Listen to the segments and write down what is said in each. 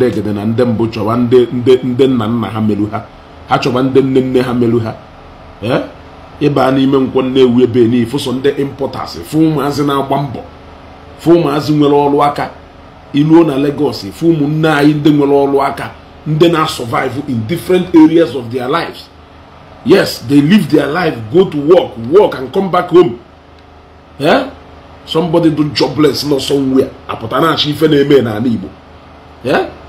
ndị egede na ndị mbụ chọba ndị nna nna ha meru ha ha chọba ndị nne nne ha meru ha ee ịba n'ime nkwọ ewu ebe n'ifu so ndị impọtas fụ ụmụazị na-agba mbọ fụ ụmụazị nwere ọrụ aka iluo na Lagos fụ ụmụnne anyị ndị nwere ọrụ aka ndị na-survive in different areas of their lives yes they live their life go to work work and come back home eh somebody do jobless nọ somewhere apụta na-achọ ife na-eme n'ala Igbo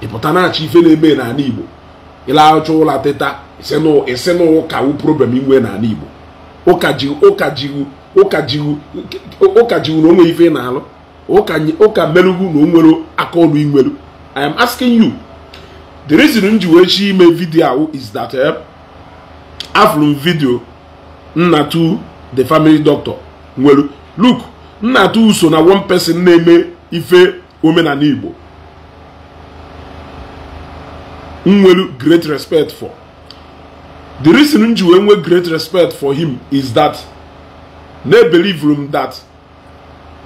ịpụta na-achọ ife na-eme n'ala igbo ịlaghacha ụlọ teta isi na ụka wu problem inwe n'ala igbo ụka jiwu ụka jiwu ụka jiwu ụka jiwu na onwe ife na-alụ ụka merugwu na onwere aka ọrụ inwelu i am asking you the reason m ji wee chi ime vidio ahụ is that eh, afụrụ m vidio nna tu the family doctor nwelu look nna tu so na one person na-eme ife omenala igbo nwere great respect for the reason m wee nwee great respect for him is that they believe him that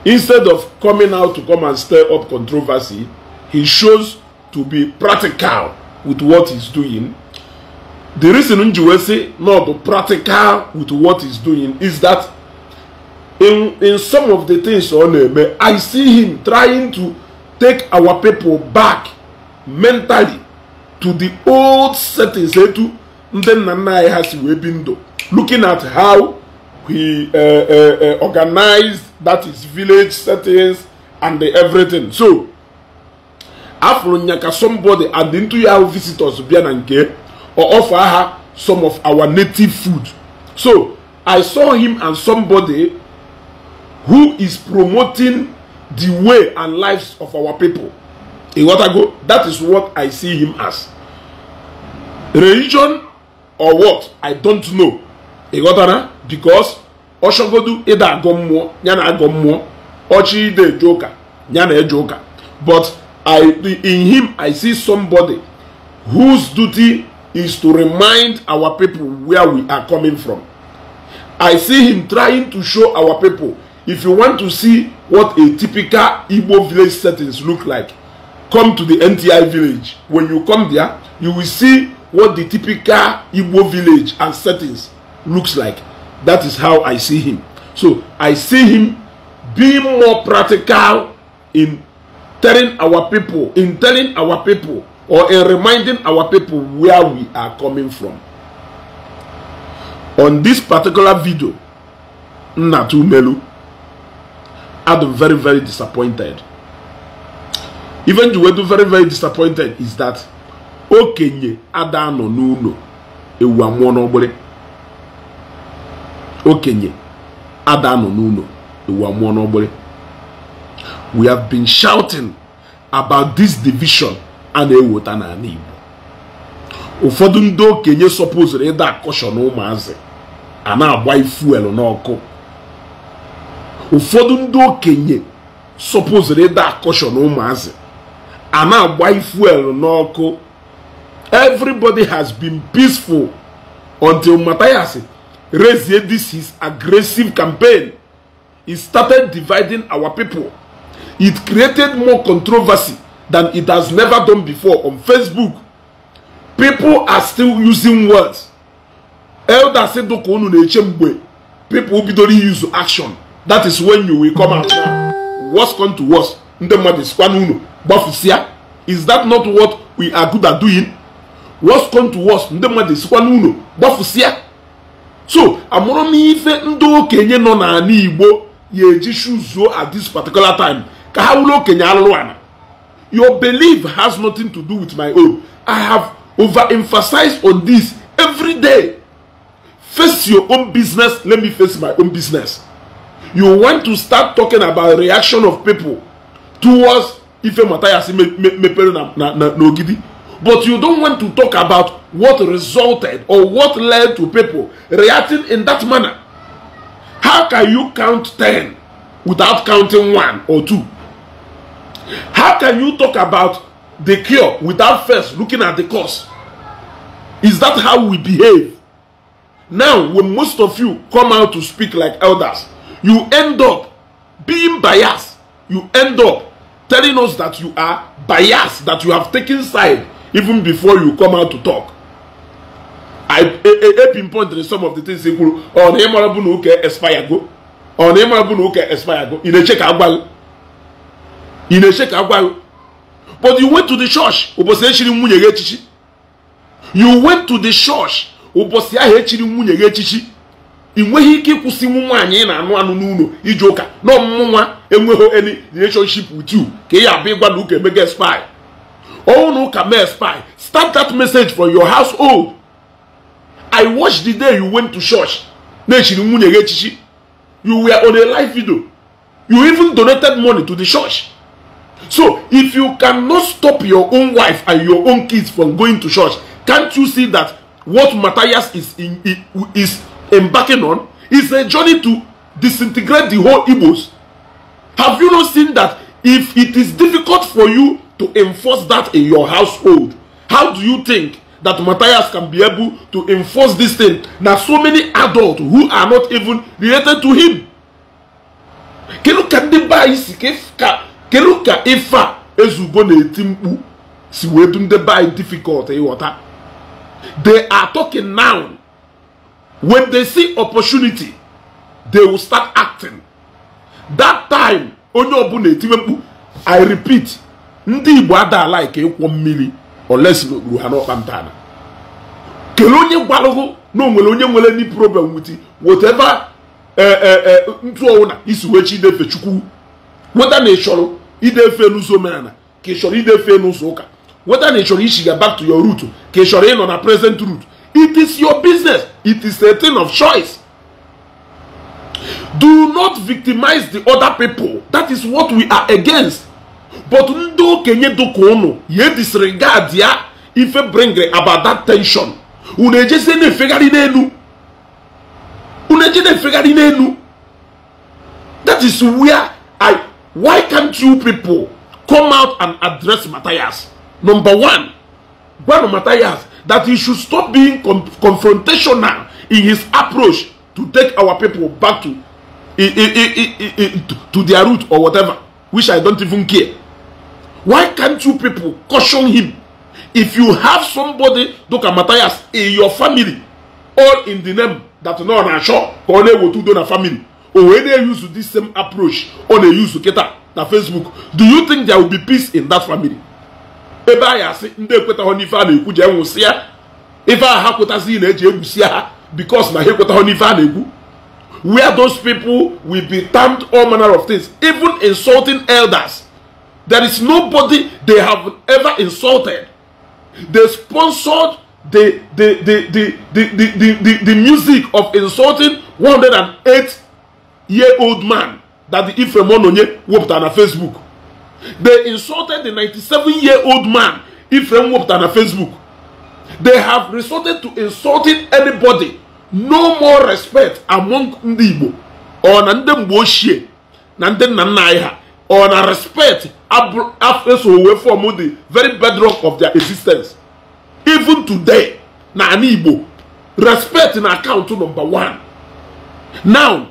instead of coming out to come and stir up controversy he shows to be practical with what he's doing the reason m wee sị no bụ practical with what he's doing is that in in some of the things ọ na-eme i see him trying to take our people back mentally to the old settings etu ndị nna nna anyị ha si wee bi ndụ looking at how he uh, uh, organized that is village settings and everything so afro nyaka somebody and into ya visitors bịa na nke or offer ha some of our native food so i saw him and somebody who is promoting the way and lives of our people. Watago. that is what I see him as. religion or what i don't know ị ghọtara because ọchọgodu ịda agụ mmụọ ya na agụ mmụọ ọchị ide eje ụka ya na eje ụka but i in him i see somebody whose duty is to remind our people where we are coming from i see him trying to show our people if you want to see what a typical Igbo village settings look like, come to the NTI village. When you come there, you will see what the typical Igbo village and settings looks like. That is how I see him. So I see him being more practical in telling our people, in telling our people, or in reminding our people where we are coming from. On this particular video, Natu Melu, I'm very, very disappointed. Even Juwedu, very, very disappointed is that okenye ada anọ n'ụlọ ewu amụọ okenye ada anọ n'ụlọ ewu amụọ n'ọgbịrị we have been shouting about this division a na-eweta n'ala Igbo ụfọdụ ndị okenye sọpụzụrụ ịda na ụmụazị a na-agba ifuelu n'ọkụ ụfọdụ ịda akọshọ a na-agba n'ọkụ everybody has been peaceful until Matthias raised this his aggressive campaign. It started dividing our people. It created more controversy than it has never done before on Facebook. People are still using words. Elder said, People bidoro use action. That is when you will come out now. What's come to worse? Is that not what we are good at doing? worst come to worst ndị mmadụ esikwa n'ụlọ gbafusia so amụrụm m ife ndị okenye nọ n'ala igbo ya eji shuzuo at this particular time ka ha wụrụ okenye alụrụ ala your belief has nothing to do with my own i have overemphasized on this every day face your own business let me face my own business you want to start talking about reaction of people towards ife si mepere na ogidi but you don't want to talk about what resulted or what led to people reacting in that manner. How can you count 10 without counting 1 or 2? How can you talk about the cure without first looking at the cause? Is that how we behave? Now, when most of you come out to speak like elders, you end up being biased. You end up telling us that you are biased, that you have taken side even before you come out to talk I pinpointed some of the things i kwuru ọ oh, na ịmara bụ na ụka expire go ọ oh, na ịmara bụ na ụka expire go ị na-eche ka agwa ị na-eche ka agwa but you went to the church ụbọchị echiri nwunye gị echichi you went to the church ụbọchị ahụ echiri nwunye gị echichi ị nweghị ike ịkwụsị nwu nwaanyị ị na-anụ anụ n'ụlọ iji ụka na ọmụmụ nwa enweghị any relationship with you ka ị ya abụ ịgwa na ụka emega expire All who can spy. Start that message for your household. I watched the day you went to church. You were on a live video. You even donated money to the church. So, if you cannot stop your own wife and your own kids from going to church, can't you see that what Matthias is, in, is embarking on is a journey to disintegrate the whole Igbos? Have you not seen that if it is difficult for you to enforce that in your household how do you think that Matthias can be able to enforce this thing na so many adults who are not even related to him kedu ka ndị be anyị si kedu ka ife a na-eti mkpu si wee du ndị be difficult ịghọta eh, they are talking now when they see opportunity they will start acting that time onye ọbụla etiwe mkpu i repeat ndị igbo adala ike ịkwọ mmiri olesgburu ha n'ọkpa ntana kelee onye gbalụgụ na onwere onye nwere ndị problem wit whatever eh, eh, eh, ntụ ọwụ na isi wee chi idefe chukwu weta na ịchọrọ idefe n'ụzọ omenala ka ịchọrọ chọrọ idefe n'ụzọ ụka weta na ịchọrọ ichiga back to your root ka ị ịnọ na present root it is your business it is a thing of choice do not victimize the other people that is what we are against but ndị okenye dịka ụnụ ya disregard ya ife bring about that tension unu ejezie na-efegharị n'elu unu eje na-efegharị n'elu that is where i why can't you people come out and address Matthias number one gwanụ Matthias that he should stop being confrontational in his approach to take our people back to, to their root or whatever which i don't even care Why can't you people caution him? If you have somebody, Doka Matthias, in your family, all in the name that no na sure, or na ewotu do na family, or wey dey use this same approach, or na use Keta, na Facebook, do you think there will be peace in that family? Ebe anyị si ndị ekwetaghọ n'ife a na-ekwu ji enwụsị ya ife a ha kwetazi na-eji egwusi ha because na ha ekwetaghọ n'ife a na-ekwu where those people will be termed all manner of things even insulting elders There is nobody they have ever insulted. They sponsored the the the the the, the, the, the, the music of insulting 108 year old man that the Ephraim Ononye whooped on a Facebook. They insulted the 97 year old man Ephraim whooped on a Facebook. They have resorted to insulting anybody. No more respect among ndị Igbo or nandem ndị nandem ochie na or na respect afesowe form the very bedrock of their existence even today na ana igbo respect na account number one now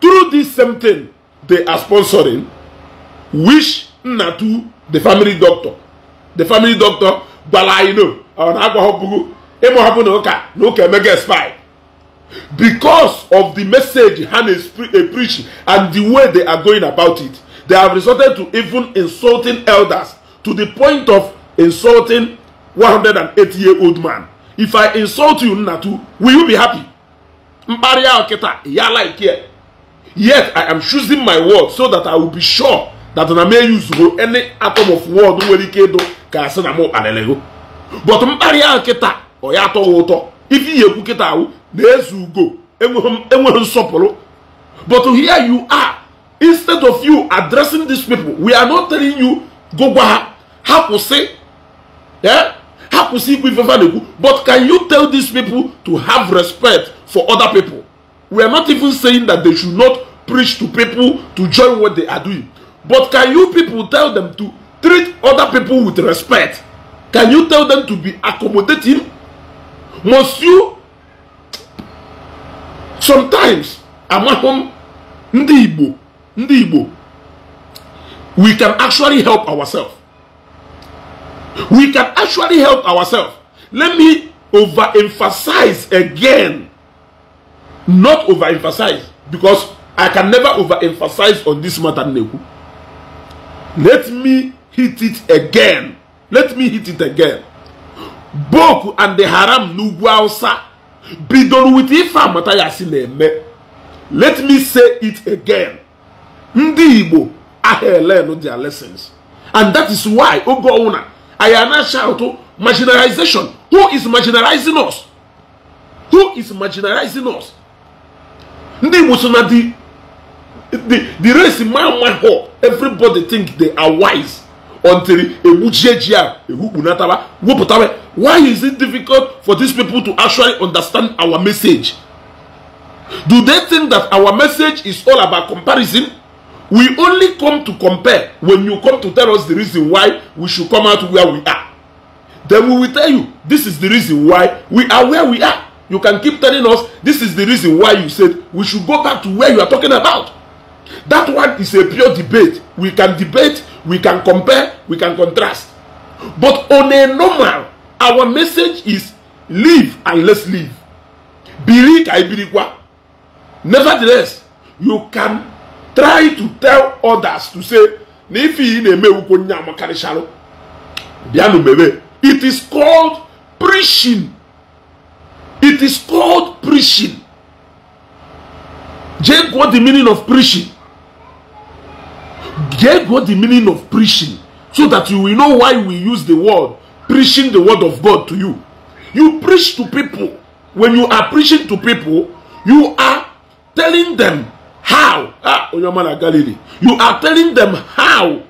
through this same thing they are sponsoring wish to the family doctor the family doctor gbara anyị no ọ na ịmụhapụ na ụka na ụka emega spy because of the message ha na eh, preaching and the way they are going about it They have resorted to even insulting elders to the point of insulting 180 year old man. If I insult you, Natu, will you be happy? Yet I am choosing my word so that I will be sure that I may use any atom of word nwere ike ịdụ ka sị na m kpalịrị but mkparị ahụ kịta ọ ya atọghị ụtọ if ihe ekwu kịta ahụ na-ezu ugo enweghị nsọpụrụ but here you are instead of you addressing these people we are not telling you go gwa ha ha kwụsị eh? ha kwụsị ikwu ife but can you tell these people to have respect for other people we are not even saying that they should not preach to people to join what they are doing but can you people tell them to treat other people with respect can you tell them to be accommodating must you sometimes amahụ ndi ndị Igbo ndị Igbo we can actually help ourselves we can actually help ourselves let me overemphasize again not overemphasize because I can never overemphasize on this matter n'ekwu let me hit it again let me hit it again Boku and the Haram n'ugwu Hausa bidoro with ife amata ya si na-eme let me say it again ndị igbo aha elen their lessons and that is why oge ọwụna ayana ana shout marginalization who is marginalizing us who is marginalizing us ndị igbo so na di the the race ma ma ho everybody think they are wise until egbujie ji a ehukpunataba wepụtawa why is it difficult for these people to actually understand our message do they think that our message is all about comparison We only come to compare when you come to tell us the reason why we should come out where we are. Then we will tell you this is the reason why we are where we are. You can keep telling us this is the reason why you said we should go back to where you are talking about. That one is a pure debate. We can debate, we can compare, we can contrast. But on a normal, our message is live and let's live. I believe what. Nevertheless, you can try to tell others to say na ife ị na-emewukwo nye amakarịcharụ bịanụ mewe it is called preaching it is called preaching jee what the meaning of preaching jee what the meaning of preaching so that you will know why we use the word preaching the word of God to you you preach to people when you are preaching to people you are telling them how ah onye ọma na Galilee you are telling them how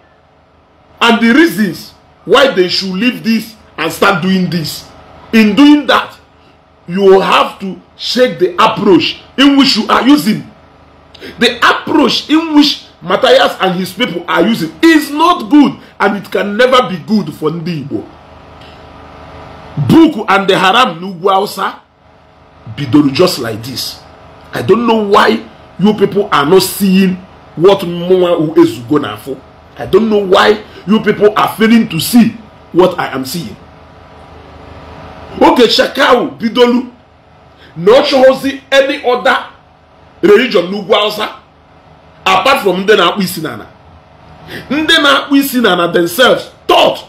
and the reasons why they should leave this and start doing this in doing that you have to check the approach in which you are using the approach in which Matthias and his people are using is not good and it can never be good for ndị Igbo book and the Haram n'ugwu Hausa bidoro just like this I don't know why you people are not seeing what Mwa Uezugo na for. I don't know why you people are failing to see what I am seeing. Okay, Shakau, Bidolu, not chosen any other religion n'ugwu Hausa apart from nde na-akpụ isi n'ala. na-akpụ isi n'ala themselves thought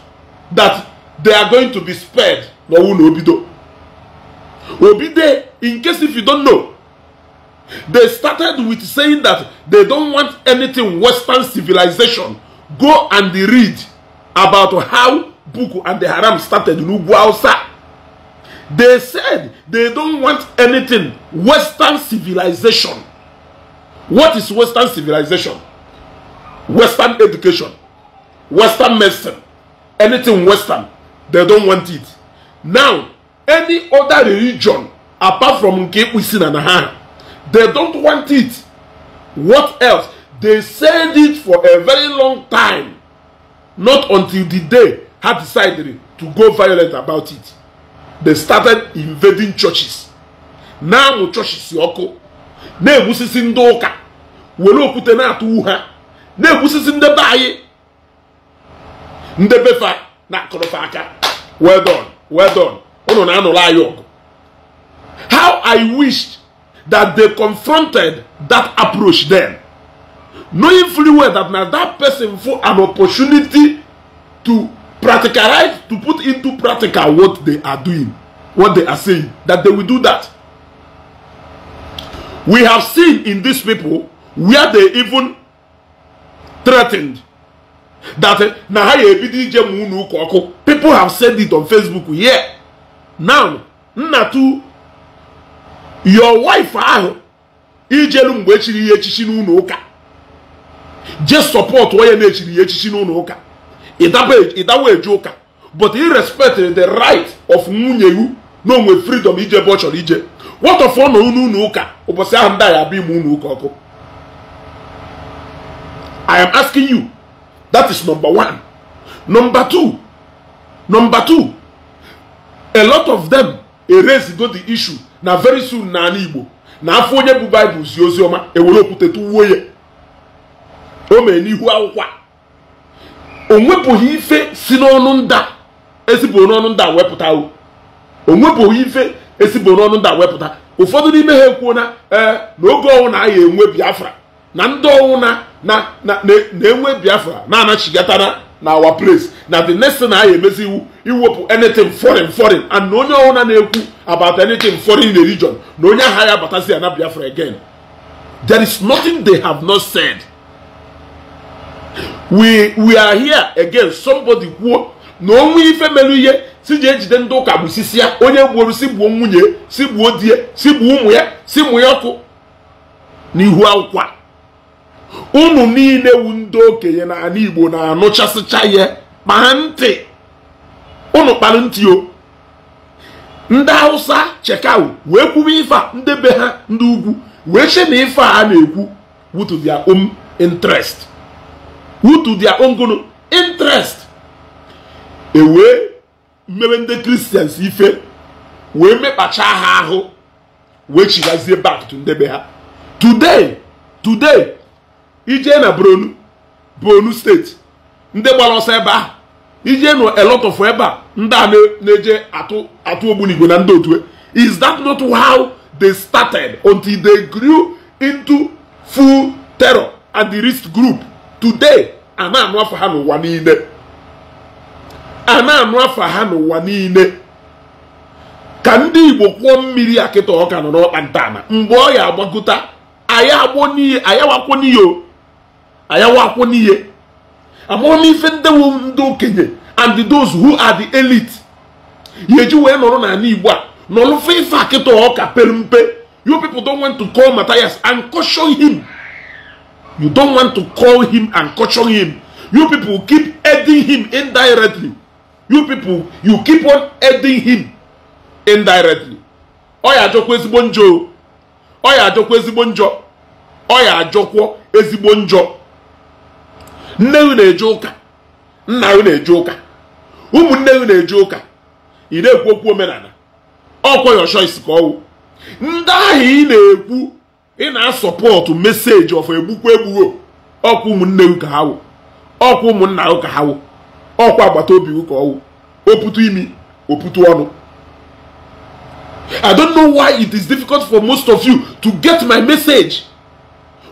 that they are going to be spared n'ọnwụ na obido. Obide, in case if you don't know, They started with saying that they don't want anything Western civilization. Go and read about how Buku and the Haram started in Uguausa. They said they don't want anything Western civilization. What is Western civilization? Western education, Western medicine, anything Western, they don't want it. Now, any other religion apart from Nkeipu Sin and Ahana, They don't want it. What else? They said it for a very long time. Not until the day had decided to go violent about it. They started invading churches. Now churches yoko. Na-egbusisi ndị ụka. Were okwute na-atụ ha. Na-egbusisi ndị be anyị. Ndị befa na-akụrụfa aka. Well done. Well done. Unu na-anụrụ anyị ọgụ. How I wished that they confronted that approach then. Knowing fully well that now that person for an opportunity to practicalize, to put into practical what they are doing, what they are saying, that they will do that. We have seen in these people where they even threatened that eh, people have said it on Facebook. Yeah. Now, Natu your wife ahụ ijelu mgbe echiri ihe echichi n'ụlọ ụka je support onye na-echiri ihe echichi n'ụlọ ụka ịdawa eju ụka but i respect the right of nwunye iwu na onwe freedom ije ebe ọ chọrọ ije watọfọ na unu ụlọ ụka ụbọchị ahụ ndị ndị abịa ime ụlọ ụka ọkụ i am asking you that is number one number two number two a lot of them the issue na very soon na ala igbo na afọ onye bụ baịbụl zi ozi ọma ewere okwute tụwuo ya o mee n'ihu akwụkwọ o nwepụghị ife si n'ọnụ nda ezibụrụ n'ọnụ nda wepụta o onwepụghị ife ezibụrụ n'ọnụ nda wepụta ụfọdụ n'ime ha ekwuo na ee n'oge ọnwụ na enwe biafra na ndị ọnwụ na na na-enwe biafra na-anachigatana na our place na the next thing anyị emezi iwu iwepụ anything foreign foreign and na onye ọbụla na-ekwu about anything foreign region na onye agha ya abatazi ya na Biafra again there is nothing they have not said we we are here again somebody kwuo na onwe ife merụ ihe si ji ejide ndị ụka sisi ya onye gburu si gbuo nwunye si gbuo si gbuo ụmụ ya si mụ ya ọkụ n'ihu akwụkwọ a unu niile wu ndị okenye na ala igbo na-anụchasịcha ya kpaa ntị ụnụ kpara ntị o ndị hausa chekau wee kwuwe ife ndị be ha ndị ugwu wee che na ife a na-ekwu wutu dia own interest wutu dia own gono interest ewee mmebe ndị kristians ife wee mekpacha ha ahụ wee chigazie bak to ndị ha today today ijee na bronu bronu steeti ndị gbara ọsọ ebe ahụ ijee na elotofụ ebe a ndị a na-eje atụ ogbunigwe na ndị e is that not how they started until they grew into full terror and the risk group today a na-anụ afọ ha n'ụwa niile a na-anụ afọ ha n'ụwa niile ka ndị igbo kwụọ mmiri akịta ọka nọ n'ọkpa ntana mgbe ọ ya agbakọta anyị agbọ n'iyi anyị agbakwo n'iyi o akwụ n'ihe amụrụ m ife ndị wu ndị okenye and those who are the elite ya eji wee nọrọ n'ala igbo a nọrụfe ife akịta ọka pelu mpe you people don want to call Matthias and caution him you don want to call him and caution him you people keep aiding him indirectly you people you keep on aiding him indirectly ọ ya ajọkwa ezigbo njọ ọ ya ajọkwa ezigbo njọ ọ ya ajọkwa ezigbo njọ nne unu eje ụka nna unu eje ụka ụmụnne unu eje ụka ị na-ekwu okwu omenala ọkwa your choice ka ọwụ ndị ahụ ị na-ekwu ị na-asọpọtụ meseji ọfọ egbukwa egbugo ọkwa ụmụnne ụka ha wụ ọkwa ụmụnna ụka ha wụ ọkwa agbata obi ụka ọwụ oputu imi oputu ọnụ I don't know why it is difficult for most of you to get my message.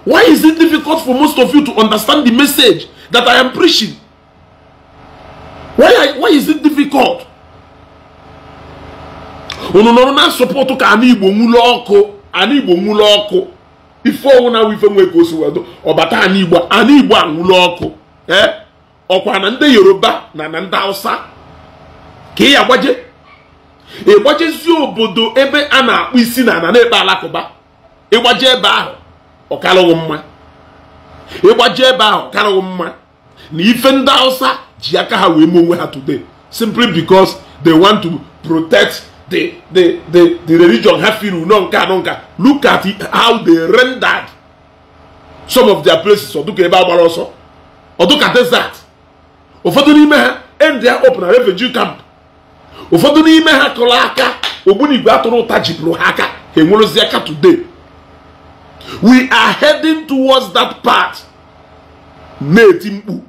Why is it difficult for most of you to understand the message? that I am preaching. Why, why is it difficult? unu nọrọ na nsọpọtụ ka ana igbo nwụlọ ọkụ ana igbo nwụlọ ọkụ ife ọnwụ na ife nwe ka o si wedo ọbata anụ igbo anụ igbo anwụlọ ọkụ ee ọkwa na ndị yoruba na na ndị hausa ka ị agbaje ịgbajezi obodo ebe a na-akpụ isi na ana na-ekpe alakụba ịgbaje ebe ahụ ọkalụghị mma ịgbaji ebe ahụ karịghị mma na ife ndị hausa ji aka ha wee mee onwe ha today simply because they want to protect the the the the religion ha feel no nka anọ nka look at how they rendered some of their places ọdụka ebe a agbara ọsọ ọdụka desert ụfọdụ n'ime ha end ya open a refugee camp ụfọdụ n'ime ha kụrụ aka ogbunigwe atụrụ ụta jipụrụ ha aka ha enwerozi aka today we are heading towards that path na-eti mkpu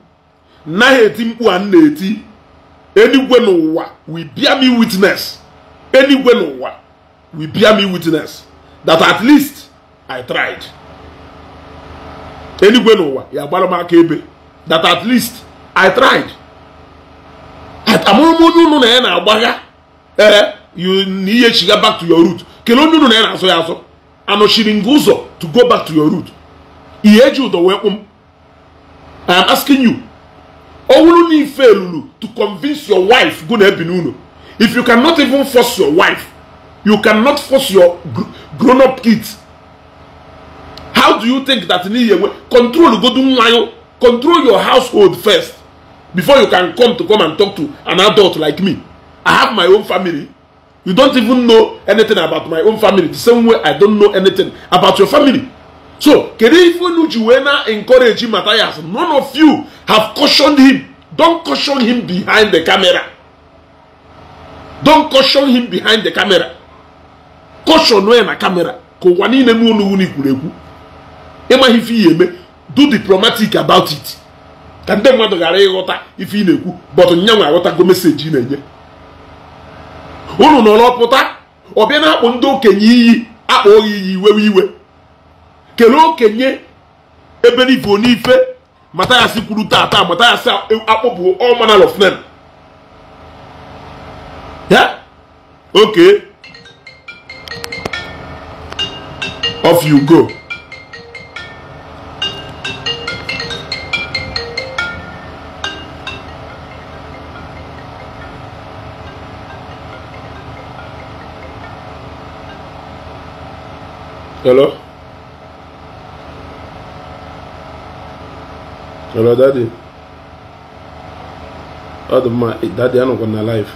na eti mkpu a na-eti eluigwe n'ụwa we bear me witness eluigwe n'ụwa we bear me witness that at least I tried eluigwe n'ụwa ya gbara m aka ebe that at least I tried amụrụ m onye unu na ya na-agbagha ee eh, na ihe chiga back to your root kelee onye unu na ya na-asọ ya asọ anọchiri gị ụzọ to go back to your root ihe eji ụdọ wee kpụ m um. i am asking you ọ wụrụ na ife lụrụ to convince your wife gụ na ebi n'ụlọ if you cannot even force your wife you cannot force your grown up kids how do you think that n'ihi enwe control godu nwa control your household first before you can come to come and talk to an adult like me i have my own family You don't even know anything about my own family. The same way I don't know anything about your family. So, na Juwena matter Matthias. None of you have cautioned him. Don't caution him behind the camera. Don't caution him behind the camera. Caution when na camera. ka ihe Do diplomatic about it. Ka ndị mmadụ ghara ịghọta ife ị na-ekwu but nyanwa aghọtago meseji ị na-enye unu nọrọpụta ọbịa na-akpụ ndị okenye iyi akpa ohi iyi iwewe iwe kelee okenye ebe n'ife n'ife si kwuru taa taa ya si akpọpụ all manner of men ya oke off you go hello hello daddy ọ dị mma daddy anọkwa gonna live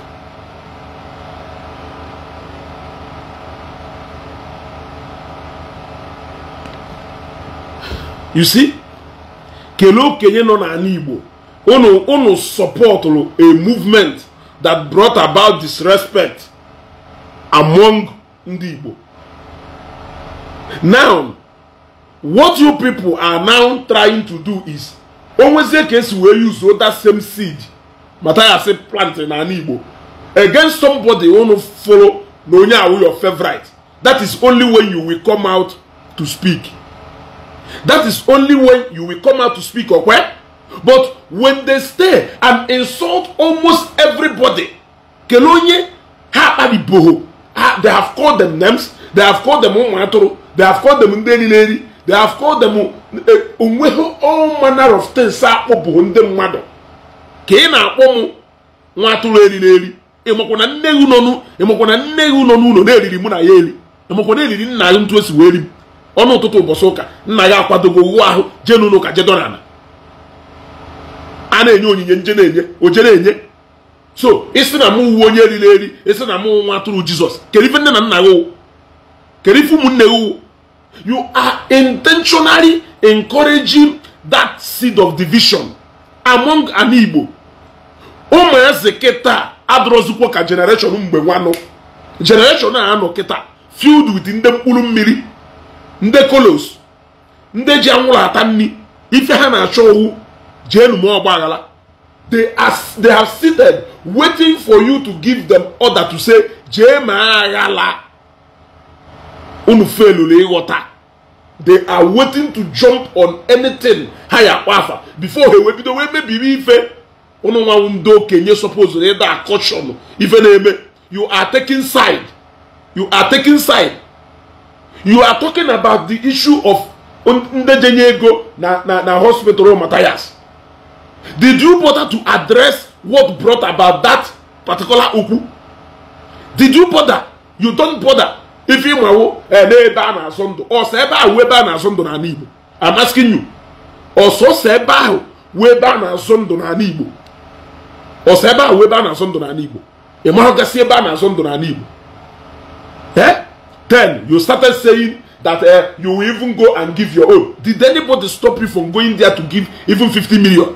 you see kelee okenye nọ n'ala igbo unu unu a movement that brought about disrespect among ndị now what you people are now trying to do is onwezie ka esi wee use that same seed say plant na ala igbo against somebody unu follow na onye awụ your favorite that is only when you will come out to speak that is only when you will come out to speak okwe but when they stay and insult almost everybody kelonye ha akpariboho they have called them names they have called them ụmụ they have called them ndị niile they have called them e, onweghị all manner of things akpụ bụ ndị mmadụ ka ị na-akpọ m nwa atụrụ eriri eri ịmakwa na nne gị nọ ịmakwa nne gị nọ n'ụlọ na-eriri mụ na ya eri ịmakwa na eriri nna gị ntụ esi wee eri m ọnụ ụtụtụ ụbọchị ụka nna gị akwadogo ụgwọ ahụ jee n'ụlọ ụka jedona ala a na-enye onyinye nje na-enye o na enye so isi na mụ uwe onye eriri eri isi na mụ nwa atụrụ jizọs kedu ife nne na nna gị kedu ife ụmụnne gị You are intentionally encouraging that seed of division among an Igbo. eze kịta adọrọzikwa ka generation mgbe nwanụ generation a anọ kịta filled with ndị mkpụrụ mmiri ndị kolos ndị ji anwụrụ ata nri ife ha na-achọ owu jee ọgba aghara they have seated waiting for you to give them order to say jee ma aghala unu felụrụ ịghọta they are waiting to jump on anything ha ya afa before ha ewebido wee mebiri ife unu nwanwụ ndị okenye supposed ịda akọshọn ife na-eme you are taking side you are taking side you are talking about the issue of ndejenye ego na na na hospital matthias did you bother to address what brought about that particular okwu did you bother you don't bother ife ịmawo n'ebe a na-azụ ndụ ọsọ ebe ahụ ebe a na-azụ ndụ n'ala Igbo amasịghị nyu ọsọsọ ebe ahụ wee ebe a na-azụ ndụ n'ala Igbo ọsọ ebe ahụ wee ebe a na-azụ ndụ n'ala Igbo ị mahụgasị ebe a na-azụ ndụ n'ala Igbo eh? then you started saying that uh, you will even go and give your own did anybody stop you from going there to give even 50 million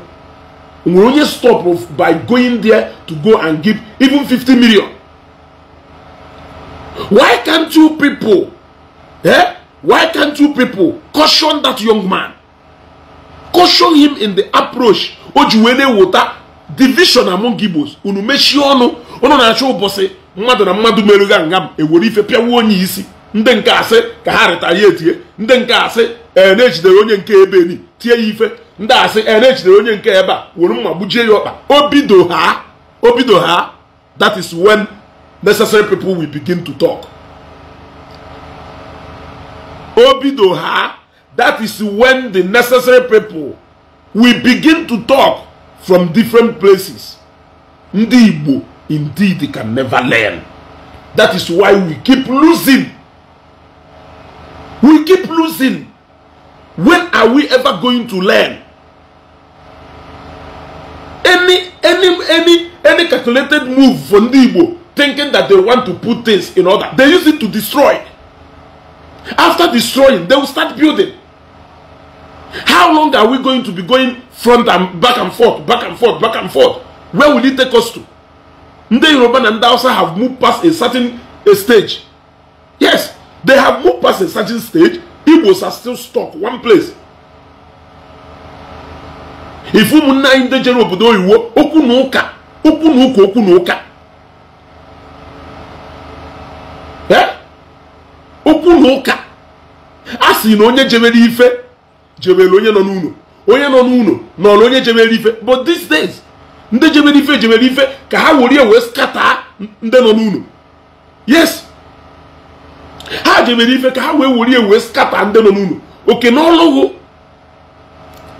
nwere onye stop by going there to go and give even 50 million Why can't you people, eh? Why can't you people caution that young man? Caution him in the approach. Ojuwele wota division among Igbos. Unu mechi ọnụ, unu na-achọ ụbọchị mmadụ na mmadụ merụga nga m ewere ife pịawa onye isi. Ndị nke asị ka ha rịtara ya etie. Ndị nke asị e, na-ejidere onye nke ebe ni tie ya ife. Ndị asị ee na-ejidere onye nke ebe a were gbujie ya ọkpa. ha, ha, that is when necessary people will begin to talk. Obidoha, that is when the necessary people will begin to talk from different places. Ndi indeed, indeed can never learn. That is why we keep losing. We keep losing. When are we ever going to learn? Any any any any calculated move from Ndi thinking that they want to put things in order. They use it to destroy. After destroying, they will start building. How long are we going to be going front and back and forth, back and forth, back and forth? Where will it take us to? nde iroba and ndị have moved past a certain a stage. Yes, they have moved past a certain stage. Igbos are still stuck one place. If ụmụnne anyị ndị jere obodo oyiwo okunuka okunuka ụka okwu na ụka a sị na onye jebere ife jebere onye nọ n'ụlọ onye nọ n'ụlọ nọrọ onye jebere ife but these days ndị jebere ife jebere ife ka ha were wee skata ndị nọ n'ụlọ yes ha jebere ife ka ha wee were wee skata ndị nọ n'ụlọ oke n'ọlụghụ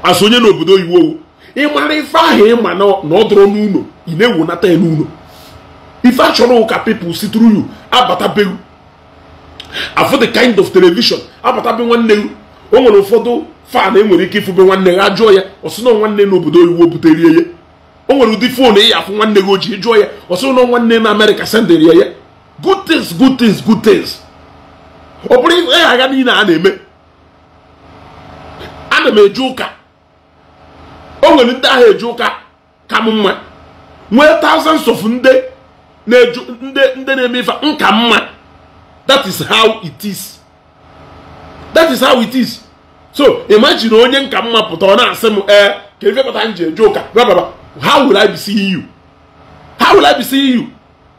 asụ onye n'obodo oyiwu owu ịmara ife ahụ ịma na ọ n'ụlọ ị na-ewu nata ya n'ụlọ ife achọrọ ụka pepụl si tru yu abata beu afụ the kind of television apụtabe nwanne gị o nwere ụfọdụ fan e nwere ike ifube nwanne gị ajụọ ya ọsụ na nwanne n'obodo oyibo butere ya o nwere ụdị fon eyi afụ nwanne gị ojii jụọ ya ọsụ na nwanne na amerịka sendere ya ya good things good things good things ọ bụrụ ihe agha niile a na-eme ana m eje ụka o nwere ndị ahụ eje ụka ka m mma nwee thousands of ndị na-eme ife nka mma that is how it is that is how it is so imagine onye nka mma pụta ọ na-asị m ee eh, ka ife pụta m ji eje ụka bababa how will I be seeing you how will I be seeing you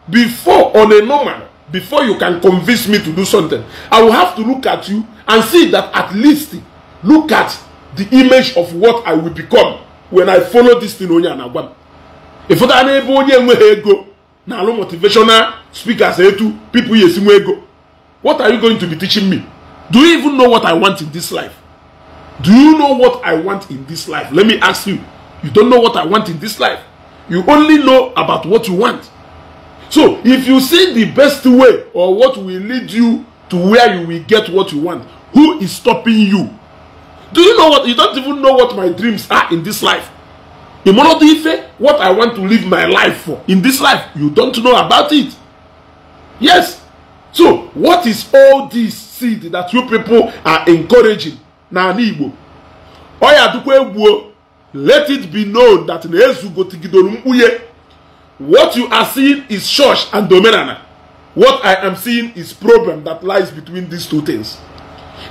before on a normal before you can convince me to do something I will have to look at you and see that at least look at the image of what I will become when I follow this thing onye a na-agwa m ịfụta n'ebe onye enweghị ego na alụ motivational speakers etu people ya esi nwe ego What are you going to be teaching me? Do you even know what I want in this life? Do you know what I want in this life? Let me ask you. You don't know what I want in this life. You only know about what you want. So, if you see the best way or what will lead you to where you will get what you want, who is stopping you? Do you know what? You don't even know what my dreams are in this life. Ife, what I want to live my life for in this life, you don't know about it. Yes, So, what is all this seed that you people are encouraging n'ala Igbo? Oya dukwa egbuo, let it be known that na gotigidoro mkpughe. What you are seeing is church and domenana. What I am seeing is problem that lies between these two things.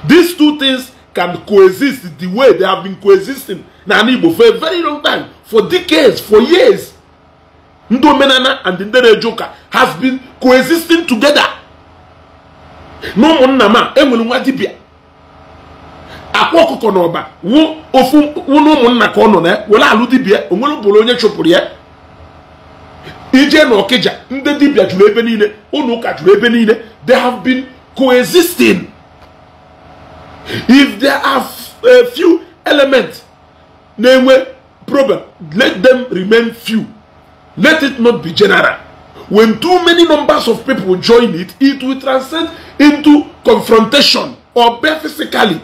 These two things can coexist the way they have been coexisting n'ala Igbo for a very long time, for decades, for years. Ndị omenana and ndị na have been coexisting together. na ụmụnna m a enwere nwa dibia akwa ọkụkọ na ọba ofu na ụmụnna ka ọ nọ na ya were alụ dibịa onwere bụrụ onye chụpụrụ ya ije na ọkịja ndị dibia juru ebe niile ụlọ ụka jụrụ ebe niile they have been coexisting if there are a few elements na-enwe problem let them remain few let it not be general When too many numbers of people join it, it will transcend into confrontation or bare physically.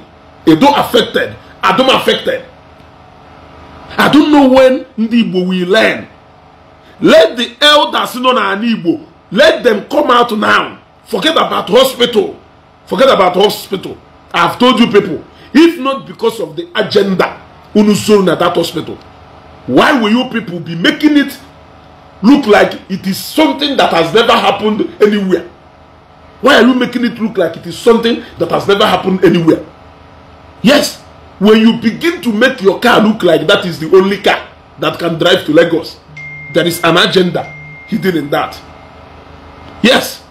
Edo affected, Adom affected. I don't know when ndị Igbo will learn. Let the elders nọ n'ala Igbo, let them come out now. Forget about hospital. Forget about hospital. I've told you people, if not because of the agenda, unusoro na that hospital, why will you people be making it look like it is something that has never happened anywhere? Why are you making it look like it is something that has never happened anywhere? Yes, when you begin to make your car look like that is the only car that can drive to Lagos, there is an agenda hidden in that. Yes.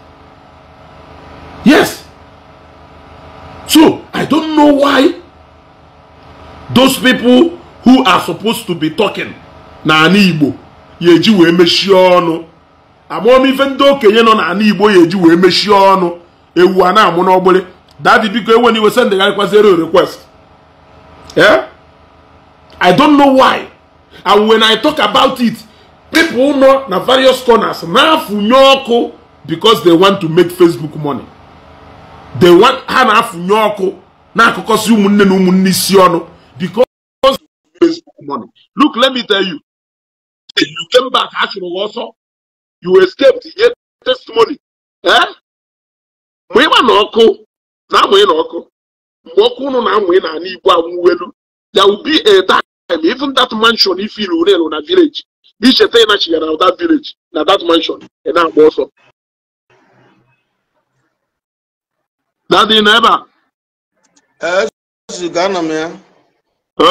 Yes. So, I don't know why those people who are supposed to be talking, na Igbo, ya eji wee mechie ọnụ amamife ndị okenye nọ n'ala igbo ya eji wee mechie ọnụ ewu a na-amụ n'ọgbụlị dadi biko ewe na iwe sendegharịkwazere request eh i don't know why and when i talk about it people nọ na various corners na-afụnye ọkụ because they want to make facebook money they want ha na-afụnye ọkụ na-akụkọsị ụmụnne na ụmụnne isi ọnụ because facebook money look let me tell you you came back achụrụ gị ọsọ you escaped ihe testimony ee eh? Mgbe ịma na ọkụ na-amụghị na ọkụ mgbe ọkụ ụnụ na-amụghị na ana igbo anwụwelu ya ubi etim even that mansion ifiri urelu na village icheta ịnachigara that village na that mansion ị na-agba ọsọ dadị na ebe a eh,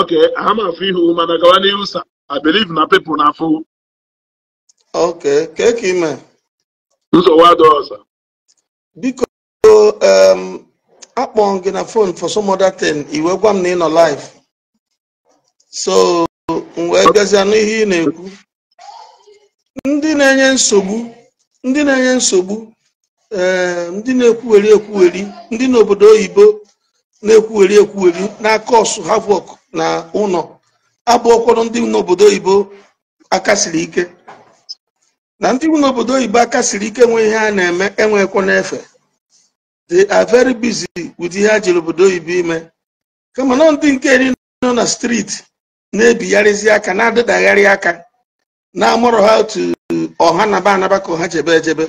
ok ama afọ ihu mana gawa n'ihu sa I believe na people na afụ okay kee ka ime nsogbu adịghị ọzọ biko akpọ gị na phone for some other thing iwe gwa m na ị nọ live so m wee bịazie n'ihe ị na-ekwu ndị na-enye nsogbu ndị na-enye nsogbu ndị na-ekwugheri ekwugheri ndị n'obodo oyibo na-ekwugheri n'aka na kọsụ work na ụnọ. abụ ụkwụrụ ndị n'obodo oyibo akasiri ike na ndị n'obodo oyibo akasiri ike nwe ihe a na-eme enwekwa n'efe they are very busy with ihe a jiri obodo oyibo ime kama na ndị nke eri nọ na street na-ebigharịzi aka na-adịdagharị aka na-amụrụ ha otu ọha naba anaba ka ha jebe ejebe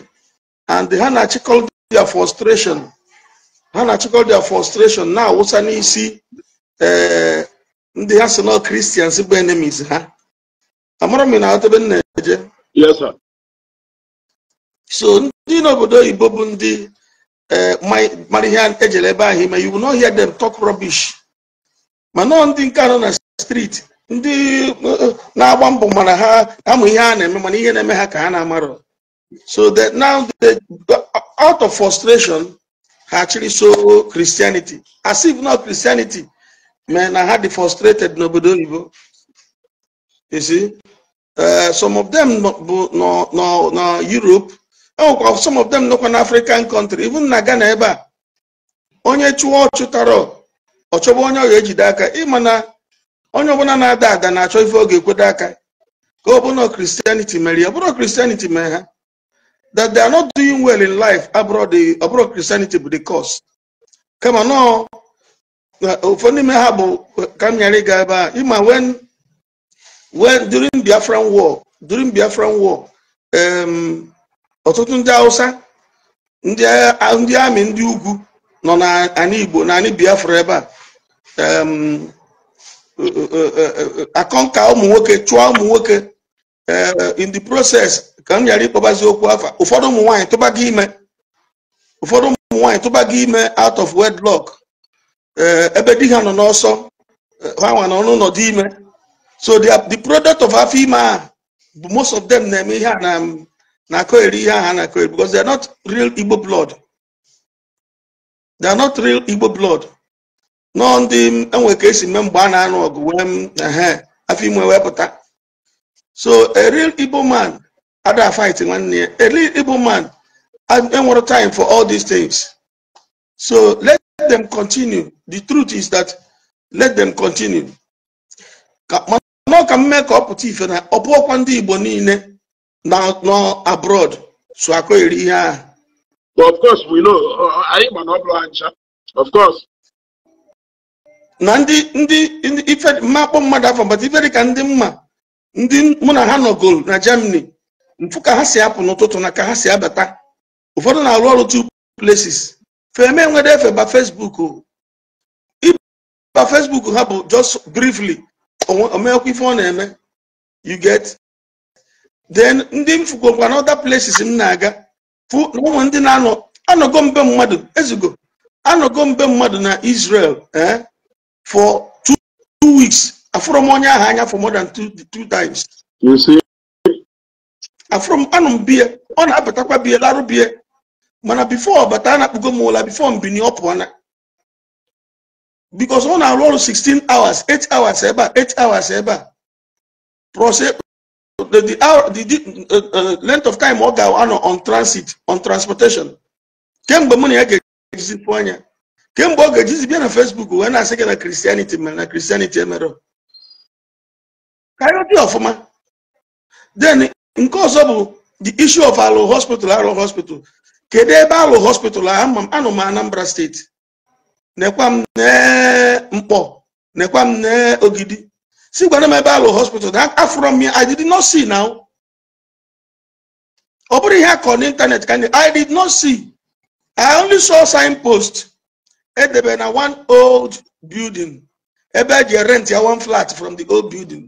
and ha na-achịkọ their frustration ha na-achịkọ their frustration na-awụsa n'isi ee eh, ndị ya nọ kristians bụ enemies ha amara m na atebe nna eje so ndị n'obodo oyibo bụ ndị eh, mara ihe ejere ebe ahụ ime iwu n'ọhịa dem tok rubbish ma nọọ ndị nke anọ na street ndị eh, na-agba mbọ mana ha amụ ihe a na-eme mana ihe na-eme ha ka ha na-amarọ so that now they, out of frustration ha chịrị so christianity as if not christianity men na ha dị frustrated n'obodo oyibo you see eh, some of them bu na Europe enwekwa some of them nọkwa na African country even na Ghana ebe a onye chụọ ọchụtara ọchọba onye ọ ga-ejide aka ịma na onye ọbụla na-ada ada na-achọ ife oge ekwedo aka ka ọ bụrụ Christianity mere ya ọ bụrụ Christianity mere ha that they are not doing well in life abroad ọ Christianity bụ the cause ụfọdụ n'ime ha bụ ka m nyere ịga ebe a ịma wen wen during Biafran war during Biafran war ọtụtụ ndị Hausa ndị amị ndị ugwu nọ na anị Igbo na anị Biafra ebe a akọnka ụmụ nwoke chụọ ụmụ nwoke eh, in the process ka m ghara ịkpọbazi okwu afa ụfọdụ ụmụ nwanyị tụba gị ime ụfọdụ ụmụ nwanyị tụba gị ime out of wedlock Eh, ebe di ha nọ n'ọsọ eh, ha nwa n'ọnụ n'ụlọ dị ime so the product of afọ ime a most of them na-eme ihe a na-akọ eri ihe aha na-akọ eri because they are not real Igbo blood they are not real Igbo blood nọ ndị enwe ka esi mee mgbe a na-anụ ọgụ wee ehe afọ ime wee pụta so a real Igbo man ada fight nwanne ya a real Igbo man enwere time for all these things so let let them continue the truth is that let them continue mana ọka mme ife na ọpụọkwa ndị igbo niile nọ abroad so akọ eri ihe ahụ of course we know anyị ma na ọ bụrụ ha of course na ndị ndị ife mma akpọ mmadụ afọ mbata ife dị ka ndị mma ndị mụ na ha nọgoro na germany mfu ka ha si apụ n'ụtụtụ na ka ha si abata ụfọdụ na-arụ ọrụ two places feme nwere efe ba o iba facebook ha bụ just briefly omekwa ife ọ na-eme you get then ndị m fugokwa na places m na-aga fụ na ụmụ ndị na-anọ anọgo mbe mmadụ ezigbo anọgo mbe mmadụ na Israel eh for two weeks afụrụ m onye ahụ anya for more than two, two times afụrụ m anụ m bie ọ na-abụtakwa bie larụ bie mana before bata na kpugo m ụla bifo mbini ọ pụọ na bikos ọ na-arụ ọrụ 16 hours 8 hours ebe a 8 hours ebe a the uh, uh, length of time ọ ga-anọ on transit on transportation kemgbe mụ na ya ga-ejizipụ anya kemgbe ọ ga-ejizi bịa na Facebook wee na-asị gị na Christianity mere na Christianity emere karịa dị ọfụma then nke ọzọ bụ the issue of alụ hospital alụ hospital kedu ebe a lụ hospital anọ m Anambra steeti nekwa m mkpọ nekwa m ogidi si gwara m ebe alụ hospital na afụrọ m ya I did not see now ọ bụrụ ihe ako kọrọ n'ịntanetị ka I did not see I only saw signpost edebe na one old building ebe eji rent ya one flat from the old building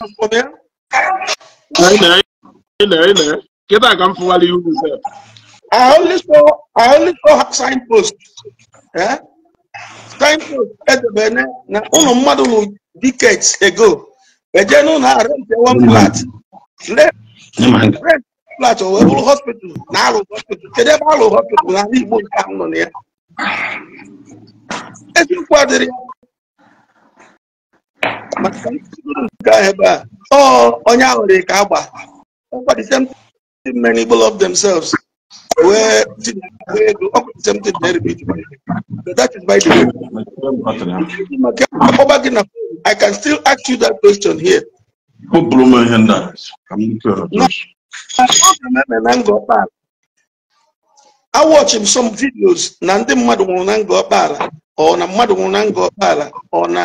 Responder? Ele, ele, ele. Get that gun for you yourself. I only saw, I only saw signpost. Eh? Signpost at the Bene. Now, on a model decades ago, a general had one mm-hmm. flat. Left, left flat or a hospital. Now, hospital. They have all hospital. I need more town on there. As you quadrille. maka oh, nke ahụ themselves wee tinye something very big that is by the way I can still ask you that question here I watch him some videos Nandem ndị mmadụ or na ngọkpala ọ na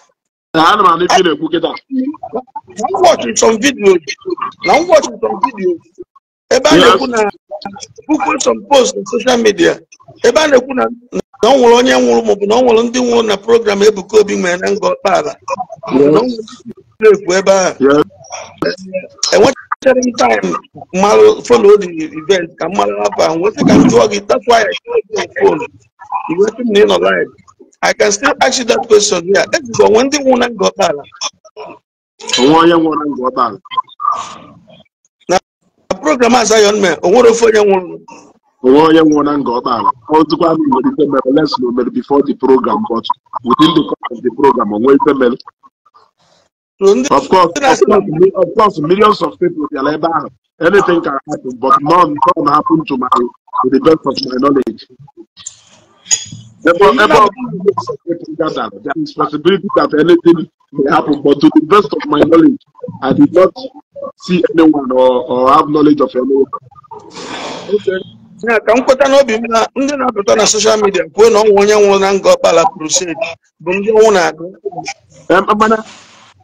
na eh. na m wọchị some ebe a na-ekwu na puku some post na social media ebe a na-ekwu na na ọ nwụrụ onye nwụrụ maọbụ na ọ nwụrụ ndị nwụrụ na program Ebuka Obi nwere na ngọ ọkpala ekwu ebe ahụ enwetara m taim event ka m mara ahụ ka m gị that's why I iweta m na I can still ask you that question Yeah, Ẹ ti sọ wọn ndị nwụrụ na ngọta ala. Onwe onye nwụrụ na ngọta ala. program Zion I o nwere ofe onye nwụrụ. Onwe onye nwụrụ na ngọta ala. Ọ dịkwa na nwere ife mere before the program but within the course of the program o nwee ife Of course, of course, millions of people bịara ebe ah, Anything can happen but none, can happen to my to the best of my knowledge. Therefore, the possibility that anything may happen, but to the best of my knowledge, I did not see anyone or, or have knowledge of anyone. Okay. na ka m kweta n'obi m na ndị na-apụta na soshal midia kwuo na ọnwụ onye nwụrụ na nga ọkpala crusade bụ ndị ọnwụ na-agụ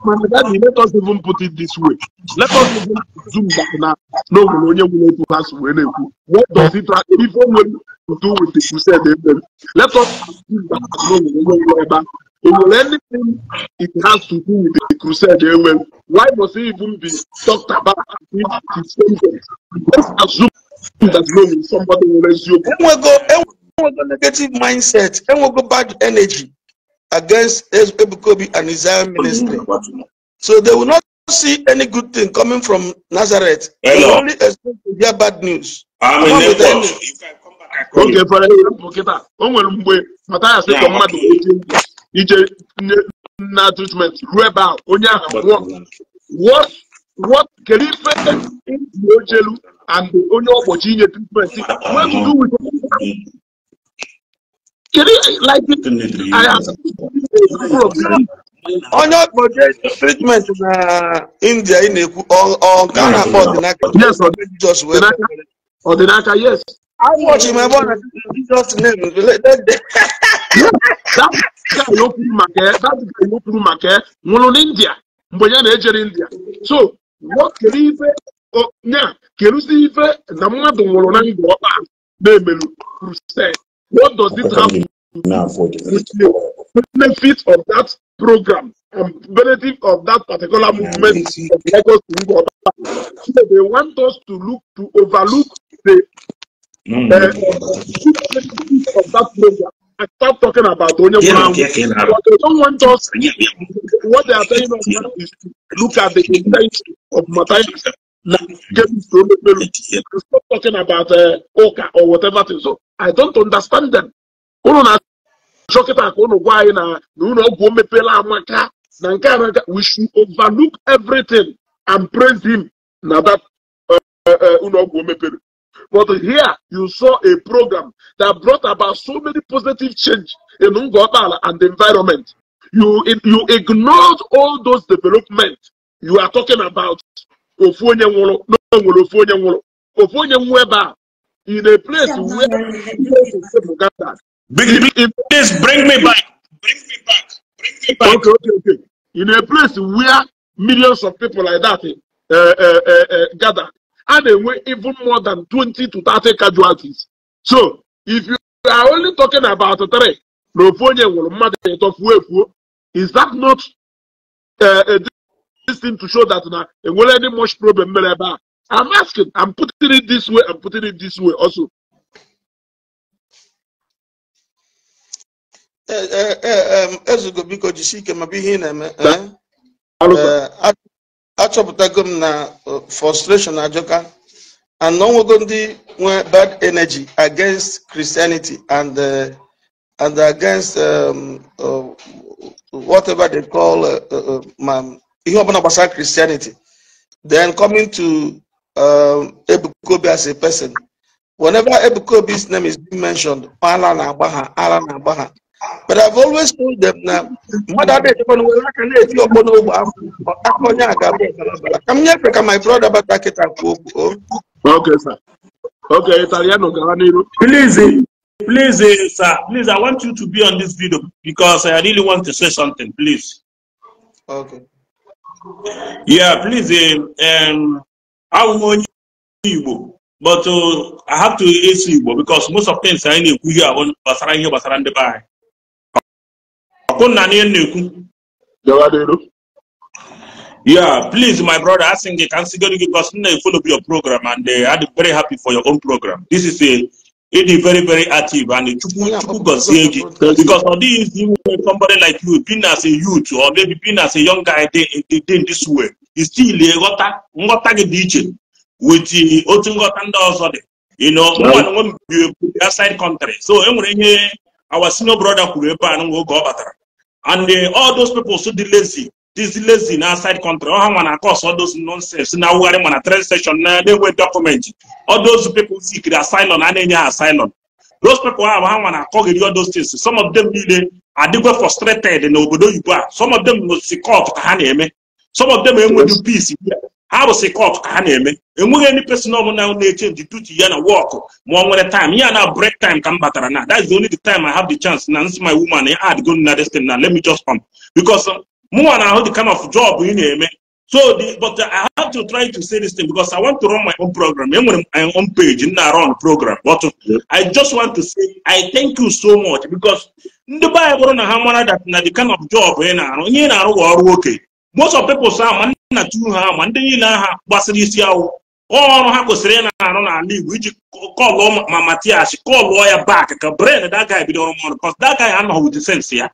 mana daddy let us even put it this way let us even zoom back na No, na onye nwụrụ otu ha si wee na-ekwu what does it ife o nwere to do with the crusade. Let us assume that anything it has to do with the crusade. Amen. Eh, why must it even be talked about? Let's assume that no, somebody will resume. a negative mindset go bad energy against Ebukobi and his own ministry. So they will not see any good thing coming from Nazareth. They only expect to hear bad news. I'm in oge fọrọ ihe mbụ kịta o nwere mgbe mataya sị ka mmadụ ije na treatment ruo ebe a onye ahụ nwụọ what kedu ife dị ochelu and onye ọgbochi inye treatment what to do with kedu like onye ọkpọje treatment na India ị na-ekwu ọ nke a na-akpọ ọdịnaka ọdịnaka yes I'm watching my brother Jesus' name. that guy no put market. That guy no put market. One in India. Mbonya na ejere India. So what kere ife o nya kerusi ife na mmadụ nwụrụ na ndụ ọkpa na-emelu What does this have to do? the benefit of that program and benefit of that particular movement of Lagos to Ngwọta? So they want us to look to overlook the of that program, I start talking about only yeah, one. Yeah, yeah, but they don't want us. What they are telling us now is look at the intention of Matthias. Now, stop talking about uh, Oka or whatever thing. So I don't understand them. We should overlook everything and praise him. Now that uh, uh, But here you saw a program that brought about so many positive change in Ngobala and the environment. You, you ignored all those development you are talking about. Ofu in a place where Uganda. Please bring me back. Bring me back. Bring me back. Okay, okay, okay. In a place where millions of people like that uh, uh, uh, uh, gather, a na-enwe even more than 20 to 30 casualties. So if you are only talking about three na ofu onye nwụrụ mmadụ ịtọ fuo efuo is that not a eh, eh, thing to show that na enwere any much problem mere ebe I'm asking I'm putting it this way I'm putting it this way also. Eh, ezugo biko jisie ike ma bụ ihe ị na-eme achọpụtago m na uh, frustration ajọka and na ọnwego ndị nwe bad energy against christianity and uh, and against um, uh, whatever they call uh, uh, ihe ọbụla gbasara christianity then coming to um, ebukobi as a person whenever ebukobi's name is being mentioned ala na-agba ha ala na-agba ha but I've always told them now. Mother, ada echekwa n'ụwa aka na-eti ọkpọ n'ogbe aka onye a ga-abụ ọbara ka m nyefere ka my brother bata kịta kwuo kwuo okay sir okay italiano please please sir please i want you to be on this video because i really want to say something please okay yeah please um awụ m onye but uh, i have to ask you because most of things anyị na-ekwu here gbasara ihe here, ndị be anyị ọkụnna na ihe na-ekwu yeah please my brother asin gị ka m gị because m na-follow your program and uh, I dey very happy for your own program this is a uh, ịdị very very active and chukwu chukwu gọzie gị because ọ dịghị izi inwe somebody like you being as a youth or maybe being as a young guy dey in this way still ịghọta eh, nghọta gị dị iche with eh, otu nghọta ndị ọzọ dị you know mmadụ nwe mbibi outside eh, country so enwere ihe our senior brother kwuru ebe a n'oge ọ batara and uh, all those people so dị lazy dịzi lazy na outside country ọha nwa na cause all those nonsense na awụgharị ma na train station na na-enwe document all those people sikiri asylum and na asylum those people ahụ ha nwa na-akọghịrị all those things some of them niile adịgwe frustrated na obodo oyibo a some of them si court ka ha na-eme some of them enweghị peace ha bụ sikọt ka ha na-eme enweghị any person ọbụla na-echenji duty ya na wọkụ ma ọ nwere time ya na break time ka m batara na that's the only the time I have the chance na nsi my woman ya eh, add go na destin na let me just come because um, mụnwa na-ahụ the kind of job ị na-eme so the, but uh, I have to try to say this thing because I want to run my own program enwere m my own page m na-arụ program but um, I just want to say I thank you so much because ndị be na ha mara that na the kind of job ị na-arụ ihe ị na-arụ bụ ọrụ okenye most of peoples ahụ ma ndị nna tu ha ah, ma ndị niile aha gbasịrị isi awụ ọrụ ha kwesịrị ị na-arụ n'ala Igbo iji kọlụ ma Matias kọlụọ ya back ka brain that guy bidoro mmadụ because that guy anọghị with sense ya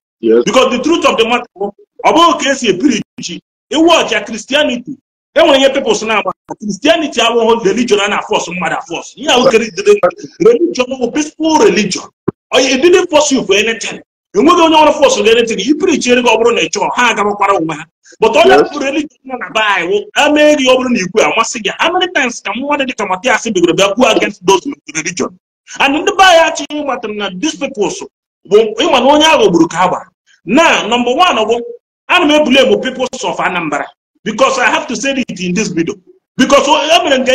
because the truth of the matter ọ bụghị ka esi ebiri ji iwọchi ya Christianity enwere ihe peoples ah, na-agba Christianity awụghụ religion a na-afọs mmadụ afọs ihe ahụ kere religion bụ peaceful religion onye didn't force you for anything enweghị onye ọrụ fọs ga-enetin i prichere ọ bụrụ na ị chọrọ ha agabakwara onwe ha but onye pụrụ religion nọ na be anyị amee gị ọ bụrụ na igwe amasị gị americans ka mmadụ dị ka matias bigoro bịa kwuo against those religion and ndị be anyị achịghị ịgbatara na these peoples bụ ịma na onye ahụ gburu ka agba na nọmba one bụ ana m ebuli emu peoples of anambra because i have to say it in this video because e mere nke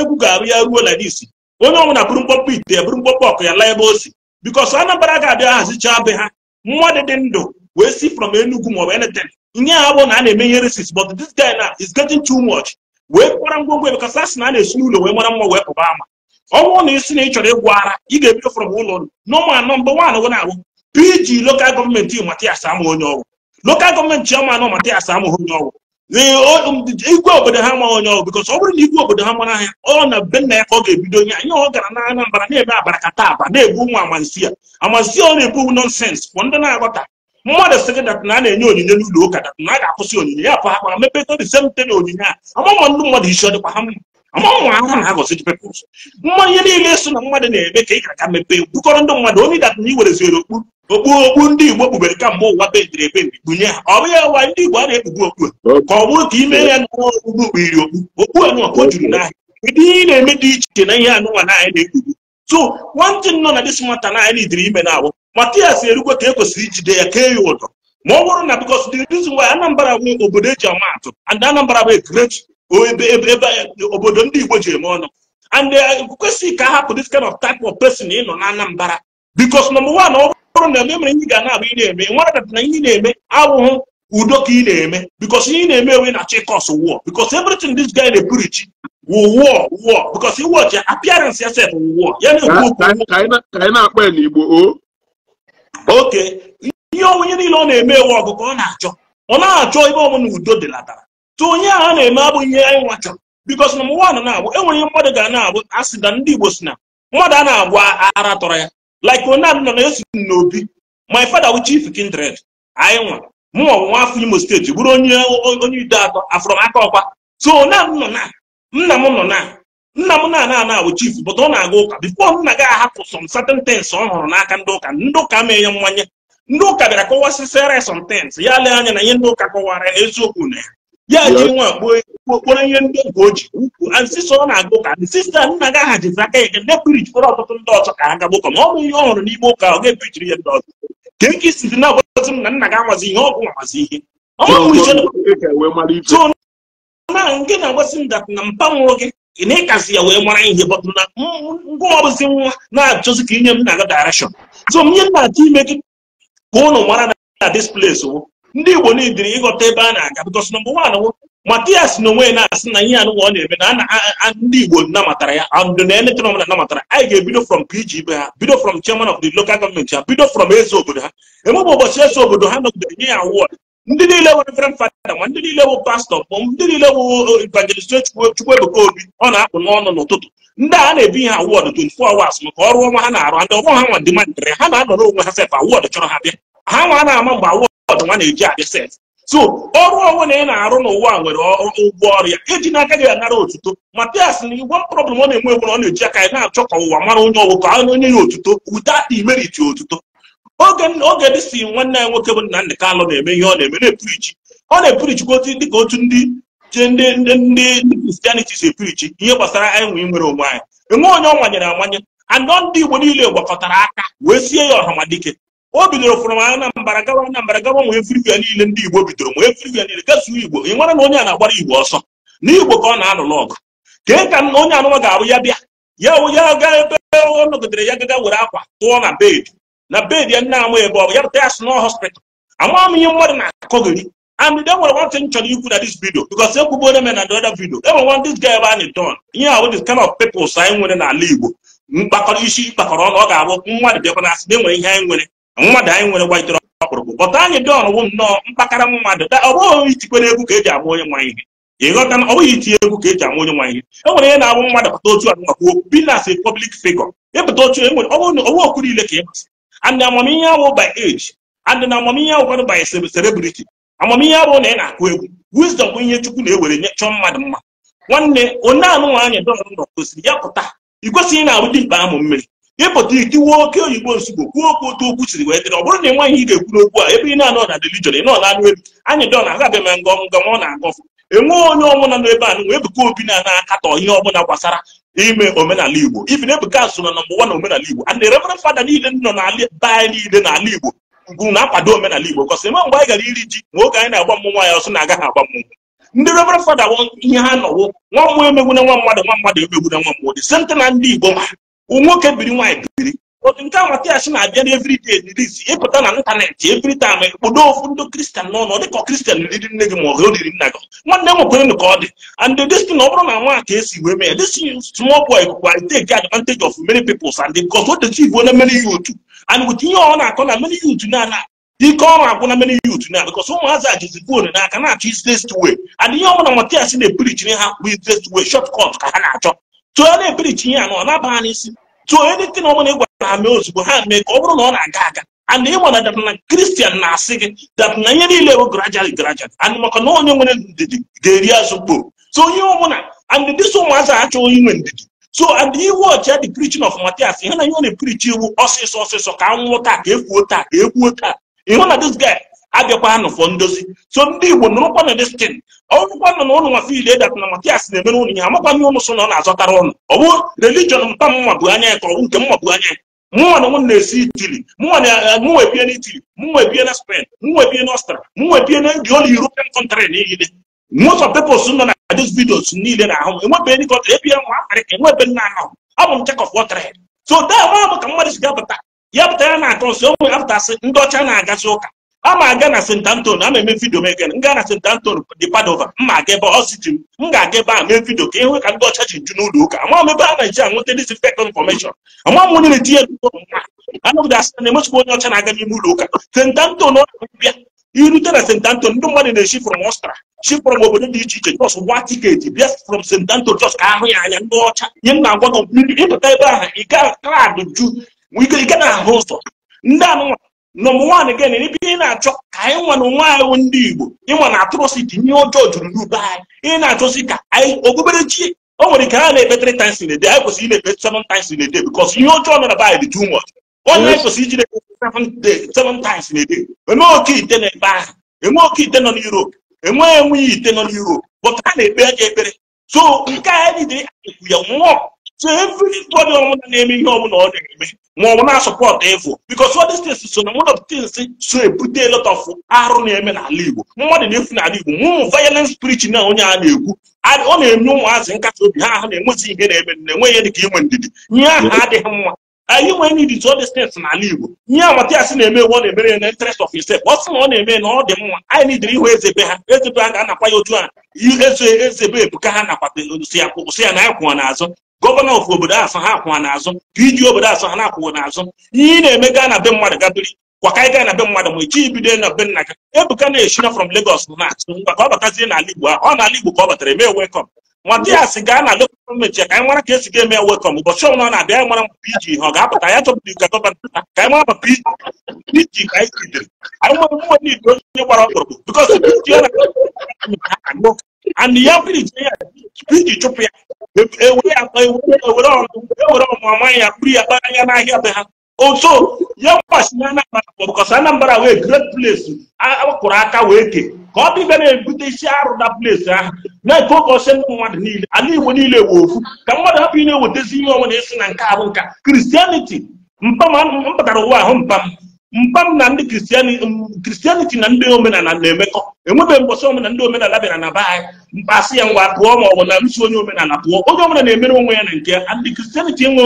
egwu ga-arụ ya ruo like this onye ọbụla bụrụ mkpọkpọ ite bụrụ mkpọkpọ ọkụ ya laa ebe o si because anambra ga-abịa hazichaa be ha mmadụ dị ndụ wee si from Enugu maọbụ anything ihe a bụ na a na-eme ihe resis but this guy na is getting too much wee kpara ngwongwo because asị na a na-esi n'ụlọ wee mara mma wee pụba ama ọnwụ na isi na ị chọrọ ịgwa ara ị ga-ebido from ụlọ nọma anọ mgbe nwaanyị gụ na-abụ pg lokal gọọmenti matias ama onye ọrụ lokal gọọmenti chiọma anọ matias ama onye ọrụ um, igwe obodo ha ma onye ọrụ because ọ bụrụ na igwe obodo ha mara ahịa ọ na be nna ya ka ọ ga-ebido nye anya ọ gara na na-eme abara kata aba na-ebu nwa amansi ya amansi ọ na-ebu nonsens bụ ndị na agọta mmadụ sị gị na a na-enye onyinye n'ụlọ ụka dat na a ga-akwụsị onyinye ya pụ ha kpara mepeta the same onyinye a amama ndị mmadụ isi ọ dịkwa ha mma amama ahụ na agọzi dị pepụl mma ihe niile so na mmadụ na-eme ka ị ga mepe mepee bukọrọ ndị mmadụ onye dat na iwereziri okpu okpu okpu ndị igbo kpubere mgbe ụwa ebe ebendi kpunye ha ọ bụ ya ndị igbo a na-ekpugbu okpu ka ọ bụrụ ka ime ya na okpukpu kpugiri okpu okpu anụ ọkụ juru n'ahịa ụdị ihe na-eme dị iche na ihe anụnwa na anyị na-ekpugbu so thing nọ na dis mata na anyị diri ime na-awụ matias erukwe ka e kwesịrị ijide ya kee ya ụdọ ma ọ bụrụ na bikos the reason why anambra bụ obodo eji ama atụ and anambra bụ great ebe obodo ndị igbo ji eme ọnụ and uh, e kwesịghị ka ahapụ this kind of type of person ịnọ na anambra bikos nọmba wan ọ bụrụ na emere ihe ga na-abụ ị na-eme nwaradata na ihe na-eme abụghị udo ka ị na-eme bikos ihe ị na-eme ewe na chikos wụọ bikos everything this guy na-epurichi will war war because you watch appearance yourself war ya na-ekwu na-akpọ ya n'igbo o oke ihe onye niile ọ na-eme ewu ọgụgụ ka ọ na-achọ ọ na ebe na udo dịlatara onye a na-eme abụ ihe anyị nwa chọrọ na abụ e mmadụ ga na-abụ ndị igbo si mmadụ a na-agwa ara tọrọ ya like onye na esi n'obi my father wu chief kindred anyị nwa mụnwa bụ nwa afọ imo steeti bụrụ onye onye atọ so nna m nọ na nna m na-ana ana bụ chief but ọ na-aga ụka bifo nna gị ahapụ some certain things ọ hụrụ n'aka ndị ụka ndị ụka mee ya mmanye ndị ụka bịara kọwasịsịara some things ya lee anya na ihe ndị ụka kọwara eziokwu na ya ya ji nwa kpokporo ihe ndị oge o ji ukwu asịsọ ọ na-aga ụka sista nna gị aha jizi aka ya ga nde pirijikwara ọtụtụ ndị ọzọ ka ha gaba ụka ma ọ bụ ihe ọ hụrụ n'ime ụka ọ ga-epichiri ya ndị ọzọ ka eke isi dị na-agwazi m na nna gị amazi ihe ọgwụ amazi ihe na nke na-agbasi ndat na mpanwụrụ gị ị na-ịkazi ya wee mara ihe bọtụ na ngwa ọbụzi nwa na-achọzi ka inye m na-aga direction so nye na achọ ime gị ka ụnụ mara na this place wo ndị igbo niile ịghọta ebe a na-aga because number one wo matias na onwe na-asị na ihe anụwa ọ na-eme na ndị igbo namatara ya andụ na eletrọ m na namatara anyị ga-ebido from pg be ha bido from chairman of the local gọọmenti ha bido from eze obodo ha emebe ụbọchị eze obodo ha nọgidere nye ya award ndị niile nwere frem fada ma ndị niile bụ pastọ bụ ndị niile bụ uh, uh, evangelist Chukwuebuka Obi ọ na akpụ n'ọnụ n'ụtụtụ ndị a na-ebi ha awọdụ 24 hours maka ọrụ ọnwa ha na-arụ ndị ọrụ ha nwa ndị mandịrị ha na-anọ n'onwe ha sef awọdụ chọrọ ha bịa ha nwa na-ama mgbe awọdụ nwa na-eji abịa sef so ọrụ onwe na ị na-arụ n'ụwa nwere ụgwọ ọrụ ya eji n'aka gị anara otuto ma matias na igwe problem ọ na-enwe enwe ọ na-eji aka ya na-achọ ka ụwa mara onye ọwụ ka onye ya otuto without the merit otuto oge dị si nwanne ya nwoke bụ nna Kalụ na-eme ihe ọ na-eme na-epirichi ọ na-epirichikwa otu dịka otu ndị je ndị ndị kristianiti si epirichi ihe gbasara anyị nwere onwe anyị enwe onye ọ nwanyere amanye anọ ndị igbo niile gwakọtara aka wee sie ya ọhamadike o bidoro fụrụ m mbara gawa mbara gawa nwee firivia niile ndị igbo bidoro nwee firivia niile gasuo igbo ị nwere na onye a na-agbara igbo ọsọ na igbo ka ọ na-alụlụ ọgụ kee ka onye anụma ga abụ ya bịa ya ya gaa ebe ọ nọgidere ya gaga were akwa tụọ na bed na bed ya nne amụ ebe ọ bụ ya bụta ya si nọ hospital ama m ihe mmadụ na-akọgịrị and then what one thing chọrọ ikwu na this video because ekwubuola m na the other video enwere one this ga ebe a na-edon ihe ahụ this kind of anyị nwere n'ala Igbo mkpakọrọ isi ịkpakọrọ ọnụ ọ ga-abụ mmadụ bịakwa na asị na enwere ihe anyị nwere mmadụ anyị nwere gbajitere ọkpụrụkpụ but anyị dọn wụ nnọọ mkpakara mmadụ ọ bụghị itikwana egwu ka eji amụ onye nwa ihe ịghọta na ọ bụghị itinye egwu ka eji amụ onye nwa ihe e nwere ihe na-abụ mmadụ pụta otu a nakwa obi pọblik as a public ịpụta otu enwere ọ bụrụ okwu niile ka ị masị and amamihe awụ by age and na amamihe awụkwanụ by celebrity amamihe abụ na ị na-akụ egwu wisdom bụ ihe chukwu na-ewere nye chọọ mmadụ mma nwanne onye anụnwaanyị dọrọ nọ gosiri ya pụta ị kwesịghị na-arụ dimkpa amụ mmiri ịpụta ikiwe oke oyibo nsogbu kwuo okwu otu okwu siri wee dịrị ọ bụrụ na ị nwaghị ị ga-ekwu n'okwu a ebe ị na-anọ na religion ị nọ na anụ elu anyị dọ na aga abịa ma ngọm ọ na-agọfụ enwe onye ọbụla nọ ebe anụ wee obi na na-akatọ ihe ọbụla gbasara ime omenala igbo ibi na ebuka so na nọmba na omenala igbo ere reverend fada niile nọ na be anyị niile n'ala igbo bụ na-akwado omenala igbo kọsị ma mgbe anyị gara iri ji nwoke anyị na-agba mmụnwa ya ọsọ na-agaghị agba mmụnwụ ndị reverend fada ihe ha nọwo nwa mmụọ emegbu na nwa mmadụ nwa mmadụ emegbu na nwa mmụọ dị sente na ndị igbo nwoke biri nwaanyị biri otu nke a nwata na-abịa na everyday release ịpụta na ịntanetị every time kpodo ofu ndị kristian n'ọnụ dịka kristian riri nne gị ma ọ riri nna gị nwanne m nwekwere ka ọ dị and this thing ọ bụrụ na nwa ka esi wee mee this small boy kwụkwa take advantage of many peoples and because o techi igbo na many youth and with ihe ọ na-akọ na many youth na ike ọrụ agwụ na many youth na because ụmụazị a foonu n'aka na-achọ na easiest way and ihe ọbụla matias na-epirichiri ha bụ easiest way short ka ha na-achọ tụọ na-epirichi ihe anọ ọ naba ha n'isi so anything ọbụla ị gwara ha mee ozugbo ha mee ka ọ bụrụ na ọ na-aga aga and ịma na dapụna Christian na that gị dapụna ihe gradually gradually and maka na onye nwere ndidi the eri of book. so onye ọbụla and this one was actually human. so and you watch the preaching of Matthias ihe na ihe ọ na-eprichi iwu ọsịsọ ọsịsọ ka anwụ water, give water, give water. egbuo taa ịhụ na this guy abịakwanụ fọ ndozi so ndị igbo nụrụkwanụ ọrụkwanụ na ụlụ nwa fiil edat na matias na-emere ụnụ ihe amakwanụ na ọ na-azọtara ụnụ ọ bụ religion mpa mma anya ya ka ọ bụ nke anya na m na-esi itili mụnwa eh, mụnwa ebie na itili mụnwa ebie na spain mụnwa ebie na ọstra mụnwa ebie na the old european country niile most of peoples nọ na those na ahụ enwebe ndị kọntrị ebie nwa afrịka enwebe nna ka mmadụ si ya ya na-akọ nso ya ndị ọcha na-agazi ụka ama aga na St. Antonio ama eme vidio m ege nga na St. Antonio dị Padova mma aga ebe ọsiti m ga-aga ebe a mee vidio ka ịhụ e ka ndị ọcha ji nju n'ụlọ ụka ama m ebe a na-eji anwụta disinfect information ama m onye tinye etinye anụgide asị na emechikwa onye ọcha na-aga n'ime ụlọ ụka St. Antonio bịa irute na St. Antonio ndị mmadụ na-eshi from Ọstra shi frọm obodo dị iche iche just gwa tiketi bịa from St. anton just ka ahụ ya anya ndị ọcha nye m na-agwa gị ịpụta ebe ahụ ike klaadụ ju ike na-ahụ ụzọ ndị anụmanụ nọmba gị again n'ebe ị na-achọ ka anyị nwa na onwe anyị ndị Igbo ịnwa na atrocity ihe ọjọọ juru n'ube anyị ị na-achọsi ka anyị okpukperechi o nwere ike ha na-ekpe three times a day anyị kwesịrị na-ekpe seven times in a day because ihe ọjọọ nọ be anyị dị too much onye anyị kwesịrị iji na-ekpe seven times in a day enwe oke ite na-ebe ahụ enwe oke ite nọ n'Europe enweghị enweghị ite nọ n'Europe but ha na-ekpe aja ekpere so nke a anyị dị ya nwụọ so everybody ọbụla na-eme ihe ọbụla ọ na-eme ma ọ bụ na-asọpọtụ efu because all these so na one of the so ebute lọt ọf of arụ na-eme n'ala Igbo mmadụ na-efu n'ala Igbo ụmụ violent spirit na onye a na-ekwu ọ na-eme ụmụazị nkasi obi ha ahụ na-enwezi ihe na-eme na-enweghị dị ka inwe ndidi ihe ahụ adịghị mma anyị nwere need to all these things n'ala Igbo ihe amatịasị na-eme ewu ọ na-emere ya na interest of himself ọ sị na ọ na-eme na ọ dị mma anyị nidiri ịhụ ezebe ha ezebe ha ga-anakwa ya otu a eze eze be ebuka ha nakwa si ya na anyị kwụọ n'azụ gọvanọ of obodo asọ ha akwụwa n'azụ iji obodo asọ ha na-akwụwa n'azụ ihe na-eme gaa na be mmadụ gabiri kwaka ị gaa na be mmadụ ma echi ibido na be nna gị ebuka na-eshina from Lagos na atụ ngwa ka ọ batazie n'ala Igbo ahụ ọ ala Igbo ka ọ batara eme welcome nwata ya si gaa na lokal gọọmenti ya ka anyị mara ka esi ga-eme welcome ụbọchị ọbụla ọ na-abịa anyị mara mpa iji ihe ọ ga-abata ya chọpụta ka gọvanọ ka anyị mara mpa iji ka anyị jidere anyị nwere mmadụ igbo onye gbara ọkpụrụkpụ bikọs anyị ya kpiri jee ya tupu iji chụpụ ya ewere ya kpa ewere ọnụ amaghị ya kpuru ya kpara anya n'ahịa be ha oto ya mgbachina Anambra bụkọsa Anambra wee great place akpụrụ aka wee ke ka ọ dịbe na-ebute isi arụ na place ahụ na-eke ụkọsi ndị mmadụ niile ala Igbo niile wee ofu ka mmadụ hapụ ị na-ewetezi ihe ọnwụ na-esi na nke abụ nka kristianiti mpam m batara ụwa ahụ mpam mkpam um, na ndị kristianiti na ndị omenala na-emekọ enwebeghị mbọsị omenala ndị omenala bịara na be anyị mkpasị ya ngwa pụọ ma ọ bụ na nso onye omenala pụọ onye omenala na-emere onwe ya na nke ndị kristianiti enwe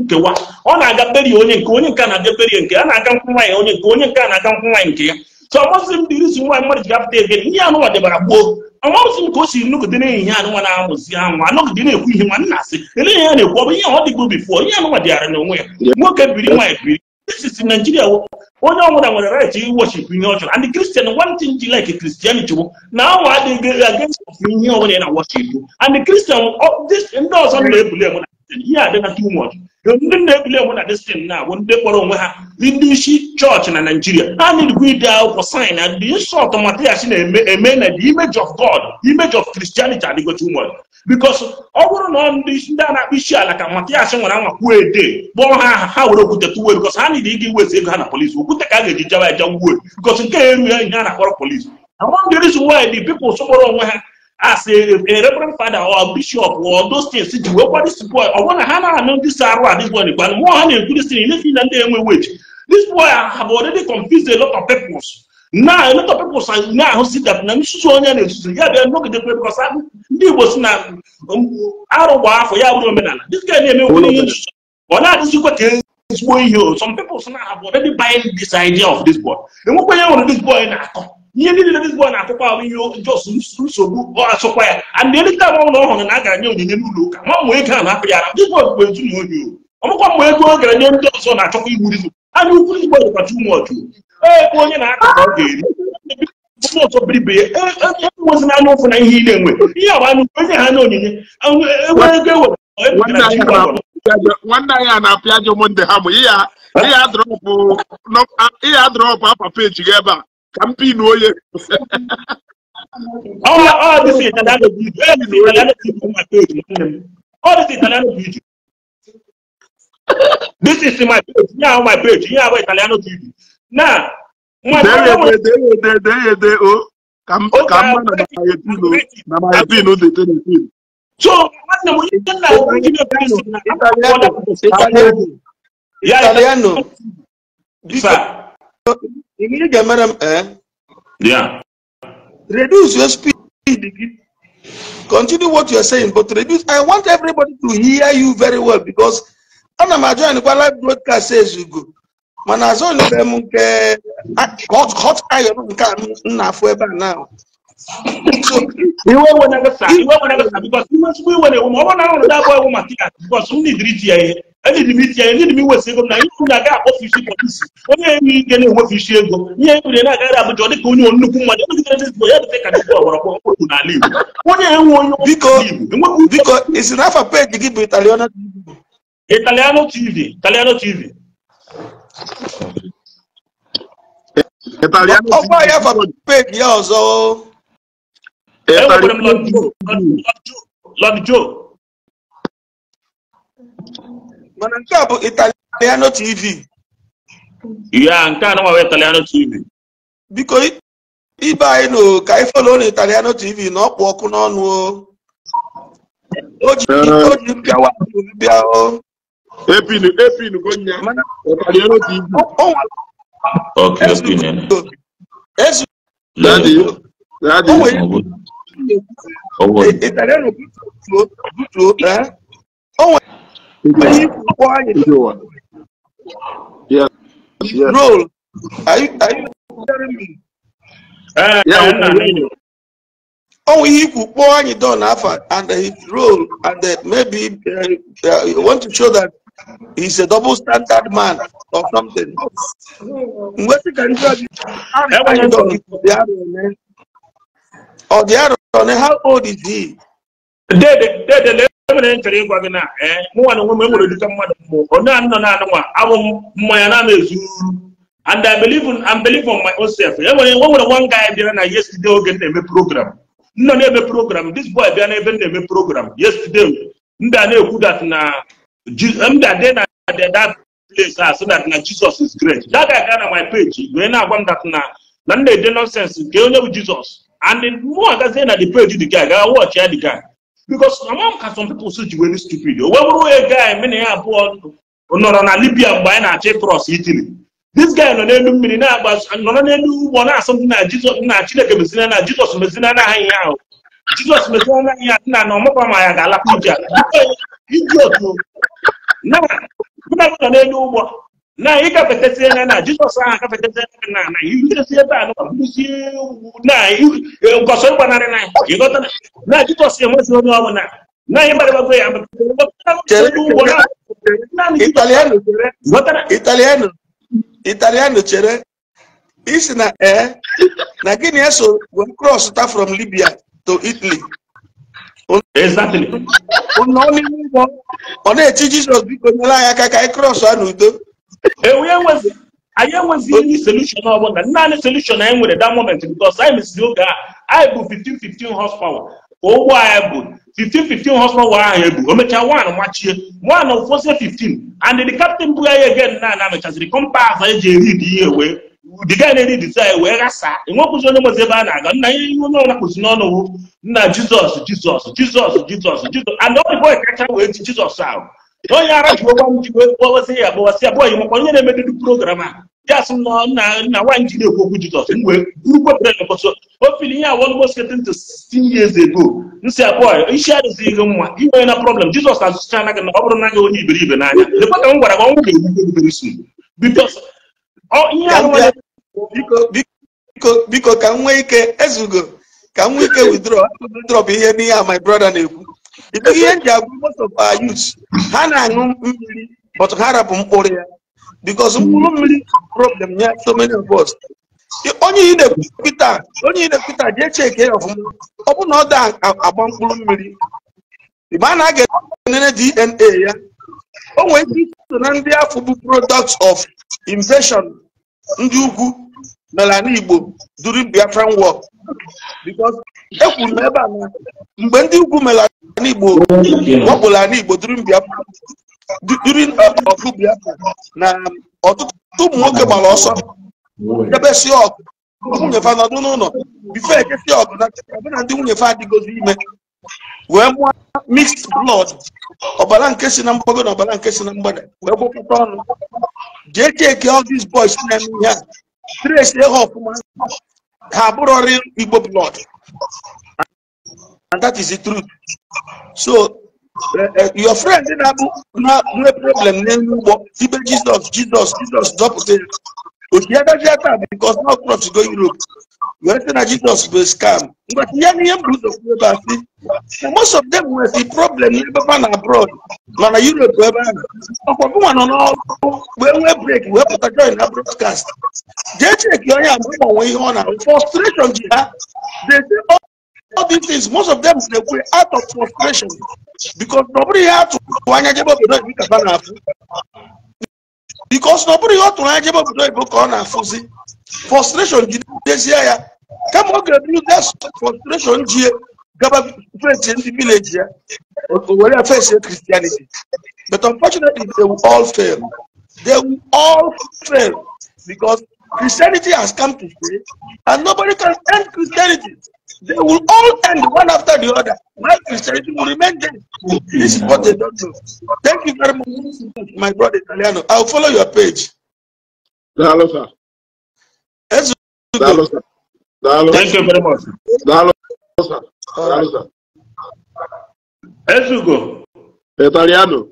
nkewa ọ na-aga berie onye nke onye nke na-aga berie nke a na-aga nkwụ nwaanyị onye nke onye nke a na-aga nkwụ nke ya so ọmasị m dịrị isi nwaanyị mmadụ ji gapụta ebe ihe anụnwa debara gboo ọmasị m ka o si nụgide na-ehihe anụnwa na-amụzi anwụ anọgide na-ekwu ihe nwa nna asị ele ihe ya na-ekwu ọ bụ ihe ọ dịgbo bifo ihe anụnwa dịgharị na onwe ya nwoke biri nwaanyị biri Christians in Nigeria, only one that was right, you worship in your church. And the Christian, one thing you like a Christianity, now I think against you when you worship. And the Christian, oh, this endorse on the ihe a dị na too much ndị na-ebuli na destin na bụ ndị kpọrọ onwe ha ndị isi chọọchị na naijiria i need erikwa ide akwụkwọ sain na the insult matyash na-eme eme na the image of god image of christianity adịgo too much because ọ bụrụ na ndị a na isi ala ka matyash nwere anwa ede kpọọ ha aha ha were okwute tuwe because ha niile ịga iwezi ego ha na polisi okwute ka a ga-eji jawa eja wuo because nke a erughị ihe na-akpọrọ polisi why the onwe ha as a, a reverend father or bishop or those things ji wekwa this boy ọ na ha na-anụ this arụ a dis boy gba mmụọ ha na-ekwu this thing ihe na ndị enwe wage this boy have already confused a lot of peoples now a lot of peoples na-ahụ si that na nsusu onye na-esusu ya bịa nọgidekwe because ndị igbo si na arụ gba afọ ya bụrụ omenala this guy na-eme ihe nsusu ọ na kwa ka ezigbo ihe some people na have already buying this idea of this boy enwekwa ya nwere this boy na-akọ ihe niile Hezbollah na-atụkwa ahụ ihe jos nsogbu ọ ya and ọhụrụ na a onyinye n'ụlọ ụka ma ego a na-apụ bụ onye ọmụkwa mgbe ego gara nye ndị ọzọ na-achọkwa igbu anya ukwu dịkwa tumọchụ e, ebe onye na-aka ka ọ ga-eri ndị ọzọ biribe enwezi e, e, n'anya ụfụ na ihe na-enwe ihe anya ukwu enye ha na onyinye nwanne anyị a na-apịa drọpụ peji gị ebe a ka m pinu onye this is my page yeah my page yeah about italiano tv now my ka m na my pin dị telepin so nwanne m onye nna italiano italiano ingini Madam, eh yeah reduce your speed continue what you are saying but reduce i want everybody to hear you very well because ana m ajọ anyị kwa live broadcast says you go mana azọ nyere m hot hot iron nke a m na-afụ ebe a now iwe wenagasa iwe wenagasa because mmasịkwa iwe na-ewu ma ọ bụrụ na ahụrụ dabụ ewu maka ya because m nidiri iti ya ihe ɛne de mi tia ɛne de mi wɔ si ego na yiwu na gaa kɔfi si polisi onye yi ge ne wɔ fi si ego nye yi wuli na gaa da abujɔ ɔdi ka onye onnukwu mmadụ ɛne de ne ya de ka dịkwa ɔwɔrɔ kɔ ɔkpɔ na ala igbo onye yi wɔ onye biko biko isi n'afa peeji gị bụ italiano italiano tv italiano tv italiano tv ọkwa ya fa peeji ya ọzọ o. Lord Joe, Lord Joe, mana nke a bụ italiano tv ya nke a nọgwa italiano tv biko ibe anyị nụ ka anyị folo na italiano tv na ọkpụ ọkụ n'ọnụ o ji mpịawa bịa o epinu epinu gonya italiano tv Okay, let's get in. Daddy, daddy. Italiano butuo, butuo, Please quiet your. Yeah. Yes. Bro, are you, are you telling me? Uh, yeah, no, Oh, he could pour on your door and he roll and that maybe uh, uh, you want to show that he's a double standard man or something. What you can do? Eh, or the other one, eh? oh, how old is he? Dead, dead, mere nchọrọ ịgwa gị na ee mụnwa na onwe m dịka mmadụ mbụ onye a nọ na anụnwa abụ m mmanya na na-ezuru and I believe in I believe on my own self e nwere nwere one guy bịara na yesterday oge m na-eme program nọ na-eme program this boy bịa n'ebe m na-eme program yesterday ndị a na-ekwu that na mda dị na that place a so that na Jesus is great that guy gaa na my page wee na-agwa m that na na m na-ede nonsense nke onye bụ Jesus and mụ agazie na the page the guy gaa watch ya the guy because among ka some people ji were stupid o oh. wee bụrụ onye guy mena ya abụọ nọrọ na libya mgbe anyị na-achọ ịkrọs itili this guy nọ n'elu mmiri nọrọ n'elu ụgbọ na-asụ ndị na jizọs na chineke mezina na jizọs mezina na aha ihe ahụ jizọs mezina na ihe na na ọmụkwa ma ya ga-alapụ ije ala iji otu na mụ na nọ n'elu ugbo. na ị gafetasịa na na jizọs ahụ na na iresi ebe a nụzi na na ịghọta na jizọs enwezi onye na anyị ya italiano chere isi na ee na gịnị eso wee cross ta from libya to italy ọ na-eti jizọs biko nyere anyị aka ka anyị cross a n'udo anyị enwezighị solushon ọbụla naanị solushon anyị nwere that moment because anyị mesịrị oge a anyị bụ 15 15 horsepower ka ụgbọ anyị bụ 15 15 horsepower ahụ ebu o mechaa wan machie wan ụfọzie 15 and the captain bụ anyị again na na mechaziri kompas eji eri dị ihe wee diga na-eri dizai wee ghasaa enwekwụzi onye nwezi ebe a na-aga nna ihe ihe onye ọnakpụzi n'ọnụ nna jizọs jizọs jizọs jizọs jizọs and ọ dịbọ kacha wee ji jizọs ahụ Don yara shugaban ko sai yabo sai yabo yi makon yana mai duk program ya sun na na na wan jide ko ku jito sun we group of friends so o feeling ya almost getting to 16 years ago in sai yabo in sha da zai gamma in wai na problem jesus has just trying to na obro na ga wani ibiri ibe na anya le pa ka ngwara ga ngwa ga ku ibiri sun because o oh, in ya no biko biko biko ka nwe ike ezugo ka nwe ike withdraw withdraw ihe ni ya my brother na ekwu ihe m ji agwụ most of our youth ha na-aṅụ mmiri but ha rapụ mkpụrụ ya because mkpụrụ mmiri problem ya so many of us onye ị na-ekwupụta onye ị na-ekwupụta ọfụma ọ bụ na ọ da agba mkpụrụ mmiri mgbe a na-aga oh, enene dna ya o nwere ike so na ndị afọ bụ product of invasion ndị ugwu n'ala igbo during biafran war e kwuru na ebe a mgbe ndị ugwu mere ala igbo wakporo ala igbo during ọkụ biafra na ọtụtụ ụmụ nwoke gbara ọsọ ebesi si ọkụ nwunyefe nọdụ n'ụlọ bife ekesi ọkụ na ọbụna ndị nwunyefe fa adịgozi ime wee mụọ mixed blood ọbara nke si na mgbago na ọbara nke si na mgbada wee gwakọta ọnụ jee cheki all these boys na-eme ihe a tresi ha ọfụma ha igbo blood and that is the truth so eh, eh, your friend na-abụ nwee problem name ugbo Jesus, Jesus, jizọs jizọs dọpụta because now crops going europe wee sị na jizọs scam But most of them were the problem abroad man. europe ebe a ọkwa bụnwa nọ n'ọrụ wee nwee break wee pụta join na broadcast jee cheki a frustration they say all these things most of them they were out of frustration because nobody had to because nobody ọ to ihe ọ tụrụ anya jebe obodo oyibo ka ọ na-afụzi frustration jidezie ya kama ọ ga-eburu gas frustration jie gaba fesi ndị vileji ya were fesi christianity but unfortunately they will all fail they will all fail because christianity has come to stay and nobody can end christianity They will all end one after the other. My Christianity will remain dead? This is what they don't do. Thank you very much, my brother Italiano. I'll follow your page. Hello, sir. Yes, Hello, sir. Hello. Thank you very much. Hello, sir. Hello, sir. Esugo. Italiano.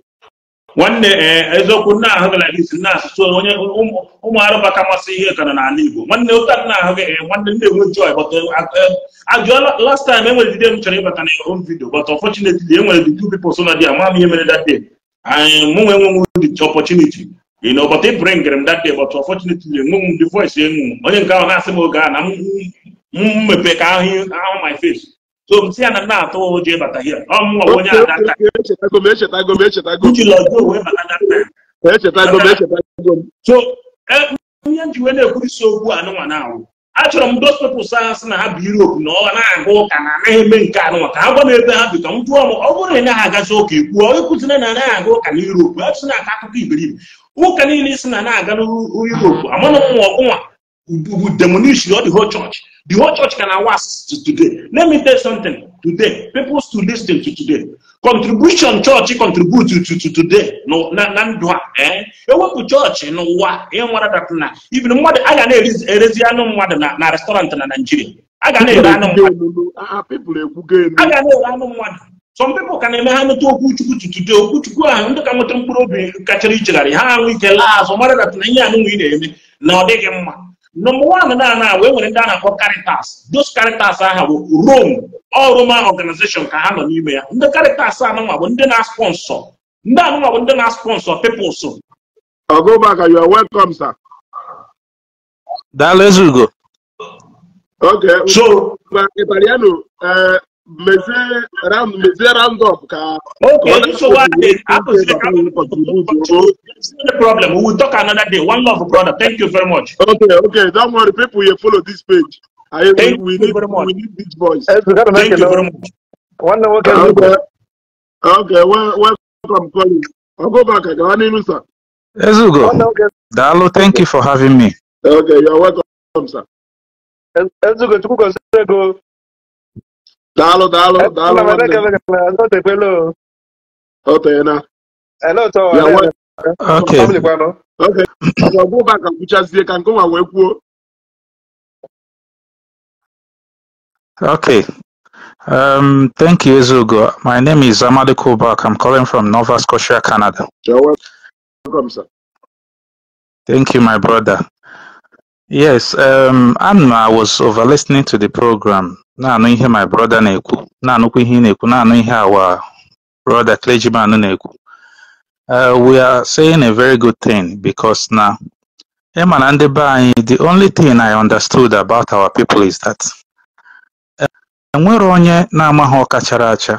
nwanne eh, eziokwu nna ahụ gara isi nna asụsụ onye ụmụ um, um, arụba ka masị ihe kana n'ala igbo nwanne ụka nna ahụ nwanne m na-enwe joy but eh, ajụọla eh, last time enwere dide m chọrọ ịbata na home video but unfortunately enwere the two people so na di ama m ihe mere that day anyị mụnwe enwenwe the opportunity you know but ị bringere m that day but unfortunately enwenwe m the voice enwu onye nke ahụ na-asị m oge a na m mepe ka ahụ my face so m si ya na m na-atụ ụjọ ịbata hie ọmụnwa onye echetago m echetago na-ekwurisi okwu anụnwa na-awụ achọrọ m dos pepụls ahụ sị na ha bụ Europe na ọha na-aga ụka na anaghị eme nke anụnwa ka ha gwa m ebe ha bi ka m jụọ m ọ bụrụ na ị naghị agazi ụka ikwuo ịkwụzina na anaghị aga ụka na Europe achụsị na-aka akụkọ iberibe ụka niile si na na-aga n'Europe amanụ nwa ọgụnwa bụ demonish ọ ho chọọchị The whole church can awas to today. Let me tell you something. Today, people still listen to today. Contribution church contribute to, today. na, ndụ a. Eh? Ewepụ church n'ụwa ihe nwere dat na even mmadụ a ga na-erezi anụ mmadụ na, restaurant na Nigeria. A ga na-ere anụ mmadụ. Ah, ah, eh? A ga na-ere anụ mmadụ. Some people ka na-eme ha nweta to today. Okwu ahụ ndị ka nweta mkpụrụ obi kachara ichegharị ha ahụ ike laa azụ mara dat na ihe anụ nwere na-eme na ọ dịghị mma. Number one na na we nwere ndị a na-akpọ Caritas. Those Caritas aha bụ Rome, all Roman organization ka ha nọ n'ime ya. Ndị Caritas anụnwa bụ ndị na-sponsọ. Ndị anụnwa bụ ndị na-sponsọ peoples. Ogumaka, you are welcome, sir. Daalụ Ezugo. Okay. So, Italiano, eh, mezie round-up ka okay so what is problem we will talk another day one love brother thank you very much ok, don't worry people you follow this page I, we, need, we need this voice thank you very much welcome go Ezugo, Dalo, thank you for having me. Okay, you're welcome, sir. Ezugo, Chukwugo, Dalo, dalo, eh, dalo. Daalụ daalụ daalụ nwanne m. O teena. Ya nwe eh, Okay. oke ọgwa gwụ ụba ka kwuchazie ka nke nwa wee kwuo. Okay. Um, thank you, Ezugo. My name is Amadi Kubak. I'm calling from Nova Scotia, Canada. you welcome, sir. Thank you, my brother. Yes, um, Anna was over listening to the program. na-anụ ihe my brother na-ekwu na-anụkwa ihe na-ekwu na-anụ ihe our brother clergyman na-ekwu uh, we are saying a very good thing because na ịma na ndị be anyị the only thing I understood about our people is that uh, enwere onye na-amaghị ọkachara acha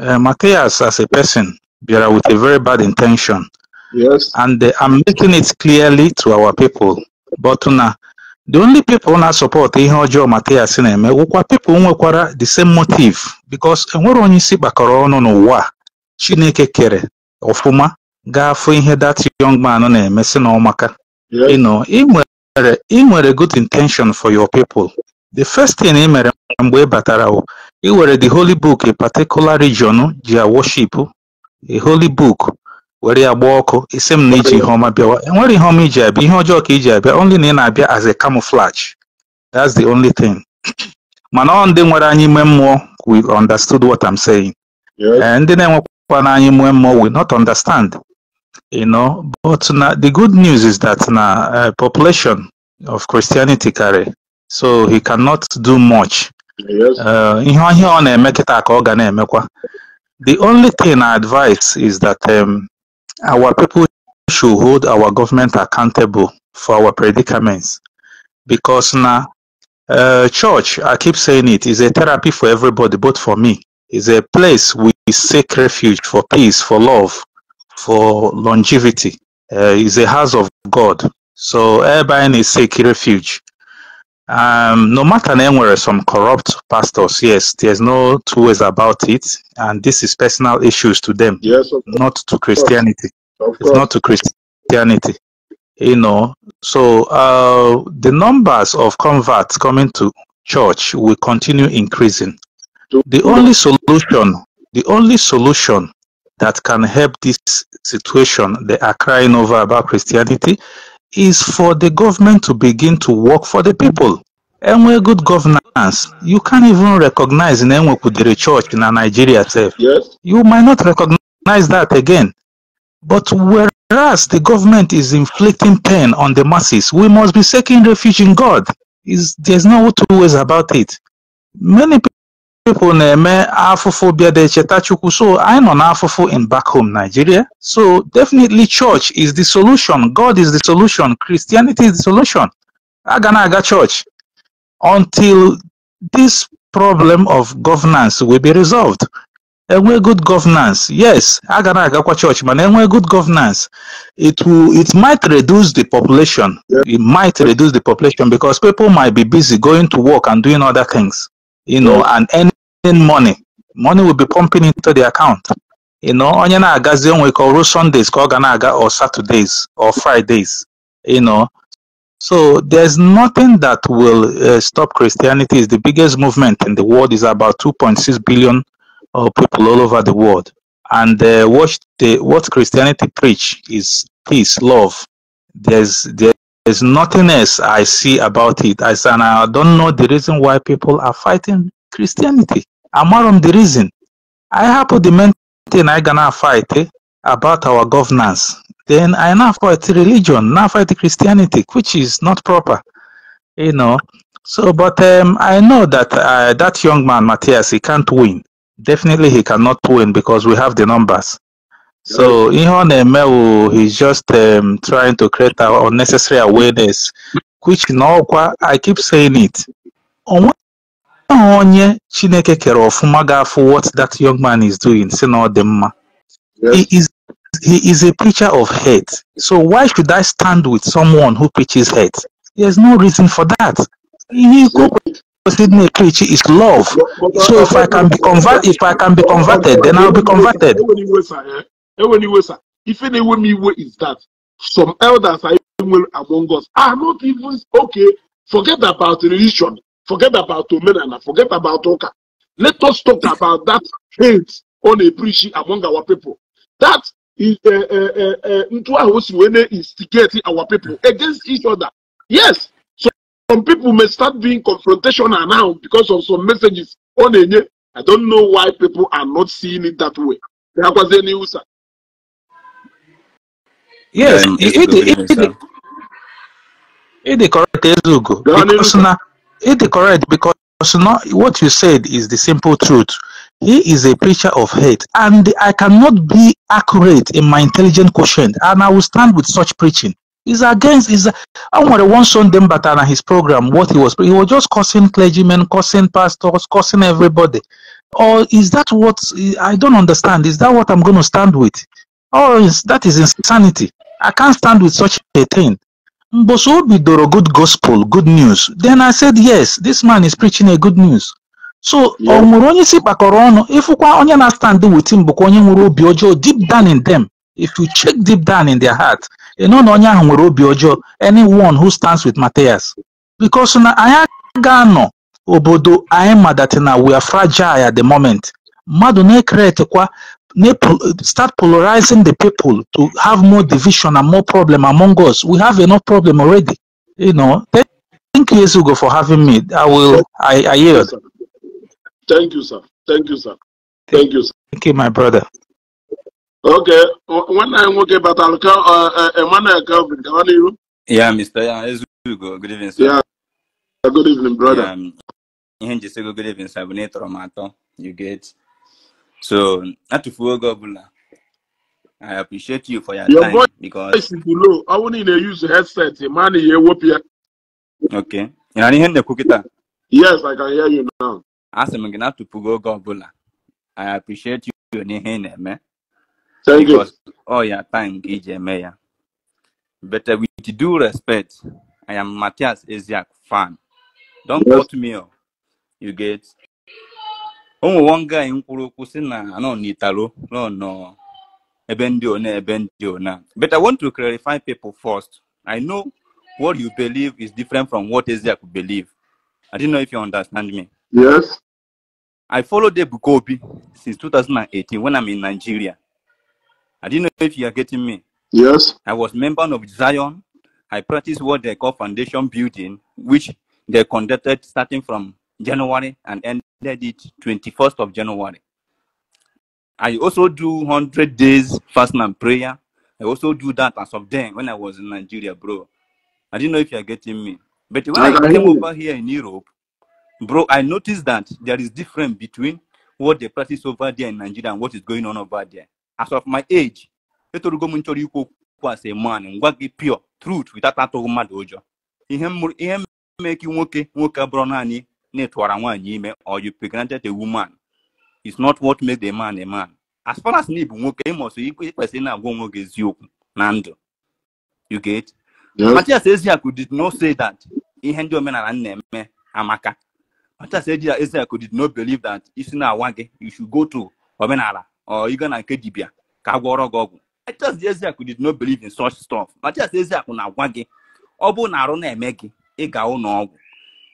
uh, Matthias as a person bịara with a very bad intention yes. and uh, I'm making it clearly to our people but na The only people na support ihe ọjọọ matias na-eme wụkwa pipo nwekwara the same motive because enwere onye isi kpakọrọ ọnụ n'ụwa a Chineke kere ọfụma ga-afụ ihe that young man na-eme si na ọmaka ị nwere ị good intention for your people the first thing ị mere mgbe ị e batara wụ ị were the holy book a particular region jia worship a holy book were ya gba ọkụ isi m na iji ihe ọma bịawa enwere ihe ọma iji abịa ihe ọjọọ ka iji abịa only na ị na-abịa as a camouflage that's the only thing mana ọ ndị nwere anyị ime mmụọ we understood what I'm saying eh, ndị na-enwekwa na anyị ime mmụọ we not understand you know but na the good news is that na uh, population of Christianity carry so he cannot do much eh, ihe ọhịa ọ na-eme kịta ka ọ ga na-emekwa the only thing I advise is that um, our people should hold our government accountable for our predicaments because now uh, eh, church, I keep saying it, is a therapy for everybody, but for me. is a place we seek refuge for peace, for love, for longevity. Uh, a house of God. So everybody needs seek refuge. Um, no matter anywhere some corrupt pastors, yes, there's no two ways about it, and this is personal issues to them, yes, not to Christianity. It's not to Christianity, you know. So uh, the numbers of converts coming to church will continue increasing. The only solution, the only solution that can help this situation they are crying over about Christianity is for the government to begin to work for the people. Enwe good governance, you can't even recognize in Enwe Kudere Church in Nigeria itself. Yes. You might not recognize that again. But whereas the government is inflicting pain on the masses, we must be seeking refuge in God. Is There's no two ways about it. Many people na-eme afụfụ bịa de cheta Chukwu so anyị nọ n'afụfụ in back home Nigeria so definitely church is the solution God is the solution Christianity is the solution aga na aga church until this problem of governance will be resolved enwe good governance yes aga na agakwa church mana enwe good governance it will it might reduce the population it might reduce the population because people might be busy going to work and doing other things you know mm. and earning money money will be pumping into the account you know onye na-agazi onwe ka ọrụ sundays call aga or saturdays or fridays you know so there's nothing that will uh, stop christianity is the biggest movement in the world is about 2.6 billion uh, people all over the world and uh, what the what christianity preach is peace love there's there there's nothing else I see about it. I said, I don't know the reason why people are fighting Christianity. I'm not on the reason. I happen the main thing I gonna fight eh, about our governance. Then I now fight religion, now fight Christianity, which is not proper. You know. So, but um, I know that uh, that young man, Matthias, he can't win. Definitely, he cannot win because we have the numbers. So ihe ọ he's just um, trying to create an unnecessary awareness which na qua. I keep saying it onwe onye Chineke kere ọfụma what that young man is doing si na the dị he is he is a preacher of hate so why should I stand with someone who preaches hate there's no reason for that ihe person may preach is love so if I can be convert if I can be converted then I'll be converted ewe ni iwe sir ife na ewe m iwe is that some elders are even among us are not even okay forget about religion forget about omenala forget about Oka. let us talk about that hate on a eprishi among our people that is eh, eh, eh, ntu ahụ o si wee na-instigate our people against each other yes so some people may start being confrontational now because of some messages ọ na i don't know why people are not seeing it that way ha kwazie n'ihu sa Yes, it is correct, Ezugo. it is correct because not what you said is the simple truth. He is a preacher of hate, and I cannot be accurate in my intelligent quotient, and I will stand with such preaching. Is against is I want to one son them but on his program what he was he was just cursing clergymen, cursing pastors, cursing everybody. Or is that what I don't understand? Is that what I'm going to stand with? Oh, is that is insanity? I can't stand with such a thing. Mboso bidoro good gospel, good news. Then I said, yes, this man is preaching a good news. So ọ nwere onye si kpakọrọ ọnụ ịfụkwa onye na stand with him bụkwa onye nwere obi ọjọọ deep down in them. If you check deep down in their heart, ị nọ na onye ahụ nwere obi ọjọọ anyone who stands with Matthias. Because na anyị ga-anọ obodo anyị na we are fragile at the moment. Mmadụ na-ekeretekwa start polarizing the people to have more division and more problem among us. We have enough problem already. You know. Thank you, Esugo, for having me. I will. I, I yield. Thank you, sir. Thank you, sir. Thank you, sir. Thank you, my brother. Okay. When I am okay, but I'll work about Alka, Emmanuel Calvin, how are you? Yeah, Mr. Esugo. Good evening, sir. Yeah. Good evening, brother. Yeah, um, good evening, sir. You get. So atụfuo oge ọbụla I appreciate you for your, your time voice because voice is below. I won't even use headset. money you whoop ya. Okay. You know, hear the kịta. Yes, I can hear you now. Asị m gị na atụfugo oge ọbụla. I appreciate you n'ihe ị na-eme. Thank because oh, you. All your time ka iji But uh, with due respect, I am Matthias Eziak fan. Don't yes. quote me. Oh. You get ụmụnwanga anyị kwuru okwu si na anọ n'italo nọ nọ ebe ndị one ebe ndị ona but i want to clarify people first i know what you believe is different from what Ezeaku believe i did not know if you understand me yes i followed Ebuka Obi since 2018 when i'm in nigeria i did not know if you are getting me yes i was member of zion i practiced what they call foundation building which they conducted starting from january and end ended it 21st of January. I also do 100 days fasting and prayer. I also do that as of then when I was in Nigeria, bro. I didn't know if you're getting me. But when I, came over here in Europe, bro, I noticed that there is difference between what they practice over there in Nigeria and what is going on over there. As of my age, as a man, ngwa gị pure truth without that mmadụ ụjọ. Ihe na ịtụwara nwaanyị ime or you pregnanted a woman is not what makes the man a man as far as na ịbụ nwoke ịmọsụ ikwesịrị na-agwa onwe gị eziokwu na ndụ you get Matias Eziaku did not say that ihe ndị omenala na-eme amaka Matias Eziaku did not believe that isi na-awa gị you should go to omenala or na nke Dibia ka agwọrọ gị ọgwụ Matias Eziaku did not believe in such stuff Matias Eziaku na-agwa gị ọ bụ na arụ na-eme gị ịga ụlọ ọgwụ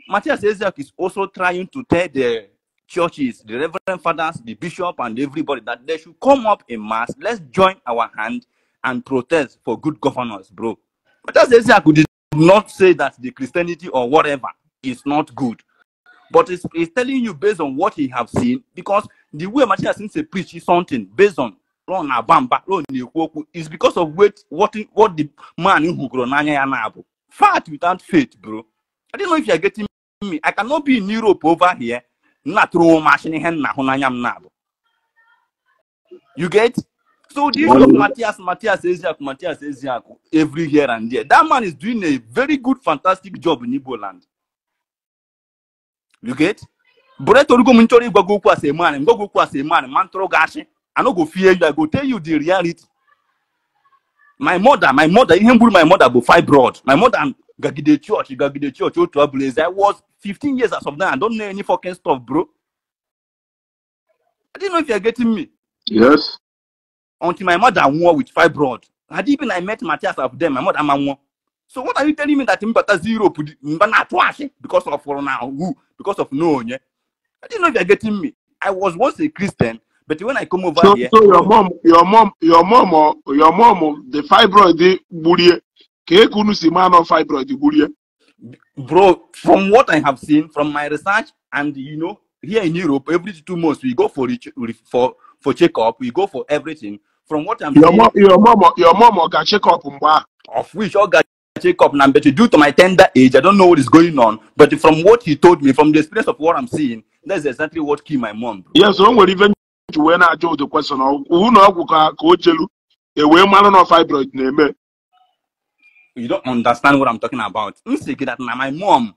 Matthias Ezek is also trying to tell the churches, the reverend fathers, the bishop, and everybody that they should come up in mass. Let's join our hand and protest for good governance, bro. Matthias Ezek did not say that the Christianity or whatever is not good. But it's, telling you based on what he have seen, because the way Matthias is preaching something based on run abamba run is because of what what, what the man who grow n'anya fat without faith bro i don't know if you are getting me i cannot be in europe over here nna throw machine ihe nna hụ n'anya m na-abụ you get so this of matias Matthias Eziaku Matthias Eziaku every here and there that man is doing a very good fantastic job in Igbo land you get Brett Orugo m nchọrọ ịgwa okwu as a man ngwa okwu as a man ma ntụrụ ga achị I no go fear you I go tell you the reality my mother my mother ihe mgburu my mother bụ fibroid my mother Gagide Church, Gagide Church, oh, trailblazer. I was 15 years as of now. I don't know any fucking stuff, bro. I didn't know if you are getting me. Yes. Until my mother won with fibroid. Had even I met Matthias of them, my mother won. So what are you telling me that Mbata zero because of now who because of no yeah? I didn't know if you are getting me. I was once a Christian, but when I come over so, here, so your mom, your mom, your mom, or your mom, the fibroid, the ka eke unu si maa nọ fibroid gburie bro from what i have seen from my research and you know here in europe every two months we go for for for checkup we go for everything from what i'm your mom your mom your mom ga check up mgbe a of which ọ ga check up na but due to my tender age i don't know what is going on but from what he told me from the experience of what i'm seeing that's exactly what kill my mom yes o nwere even wee na-ajụ ụdị kwesịrị ụlọ ọgwụ ka o chelu ewee mara na fibroid na-eme you don't understand what i'm talking about m sị that my mom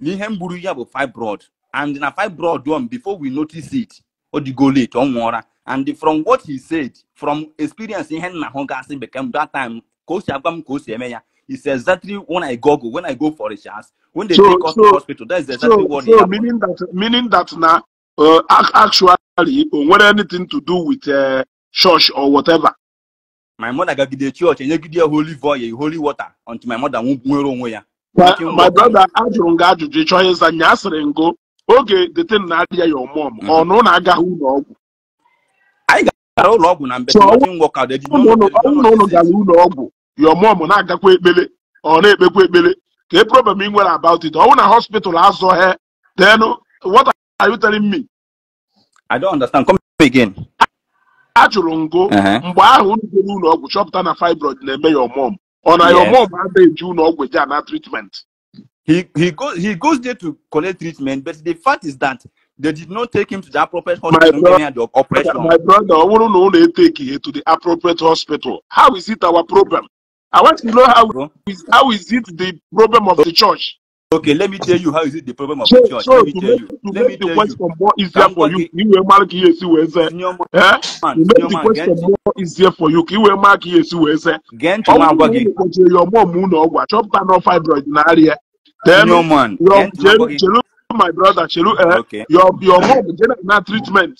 na ihe m buru ya bụ fibroid and na fibroid um before we notice it Or the go late ọ nwụọra and from what he said from experience ihe nna hụ gasị bekee m that time ka o si agwa m ka o si eme ya exactly when I go, when I go for a chance, when they so, take us so, to hospital. That's exactly so, what. So meaning that meaning that now, uh, actually, uh, what anything to do with uh, church or whatever. my mother gagide church enyegide ya holy voye holy water until my mother nwere onwe ya my brother ajụrụ m gị ajụjụ ịchọ ihe ịza nya asịrị ngo oge detin mm. na adịghị ya ọmụm ọnụ na agaghị ụlọ ọgwụ anyị gara ụlọ ọgwụ na mbete gara ụlọ ọgwụ ya ọmụm na-agakwa ekpele ọ na-ekpekwa ekpele ka e problem ị nwere about it ọnwụ na hospital azụ he then what are you telling me i don't understand come again a chụrụ ngụ mgbe ahụ unu jere ụlọ ọgwụ chọpụta na fibroid na-eme ya ọmụm ọ na ya ọmụm adịghị eji ụlọ ọgwụ eji ana treatment he goes there to collect treatment but the fact is that they did not take him to the appropriate hospital during the operation. my brother ọ bụrụ na unu etake ya to the appropriate hospital how is it our problem i want to know how is, how is it the problem of the church. Okay, let me tell you how is it the problem of church. So let me tell you. let me tell you. More easier for you. You Kí wẹ́n máa you Yesu wẹ́ sẹ́. To make the question more easier for you. You wẹ́n máa kí you wẹ́ sẹ́. Gẹ́ntì máa gbọ́ gẹ́. your mi kò ṣe ọmọ mu náà wà. Chọ́pútà náà fibroid náà rí ẹ. Tẹ́lẹ̀ my brother Shelu eh, okay. your your mom jẹ́nà na treatment.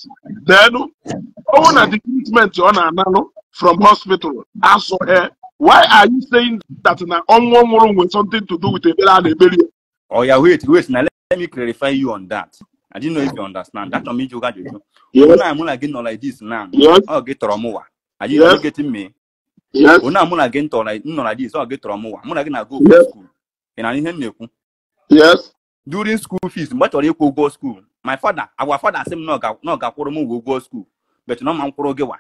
Then owó na the treatment ọ na-ana no from hospital aso ẹ. Why are you saying that na ọnwụ ọnwụrụ with something to do with ebere a na-eberi ya? oya wait, wait. na let, me clarify you on that. I didn't know if you understand. That on mean you got you. know I'm not getting like this now. get Romowa. Are you yes. getting me? Yes. When I'm not like no like this, get Romowa. I'm not na go yes. school. And I didn't know. Yes. During school fees, but or you go school. My father, our father said no ga no ga kworo mu go school. But no man gewa.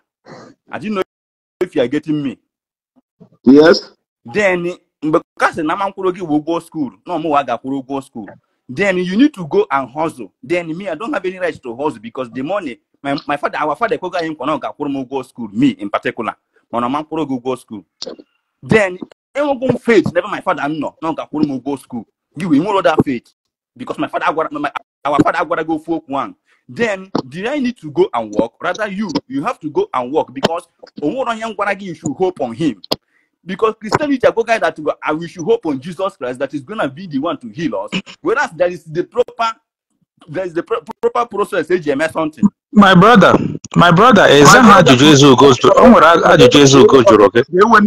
I didn't know if you are getting me. Yes. Then mgbe kasị na ama mkwụrụ gị wụ ụgwọ skuul na ọmụwa gakwụrụ ụgwọ skuul then you need to go and hustle then me i don't have any right to hustle because the money my, my father our father ekweghị anyị nkwa na ọ gakwụrụ m ụgwọ skuul me in particular mana ọma mkwụrụ gị ụgwọ skuul then enwego m faith n'ebe my father nọ na ọ gakwụrụ m ụgwọ skuul gị wee nwere that faith because my father our father agwara gị ofu okwu ahụ then did I need to go and work? Rather, you you have to go and work because Omoro Yang you should hope on him. Because Christianity are guy that we, are, we should hope on Jesus Christ that is gonna be the one to heal us. Whereas there is the proper there is the pro- proper process AGMS something. My brother, my brother, eh, is that ajụjụ eze ugo jụrụ? O nwere ajụjụ eze ugo jụrụ gị. Ewen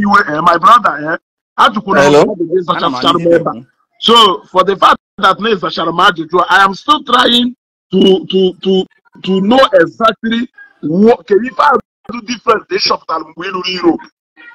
my brother, ajụkwuru ajụjụ zachara m So for the fact that name ịzachara m I am still trying to to to to know exactly what can ife ajụjụ different dị shọpụtara mgbe ị ruru Europe.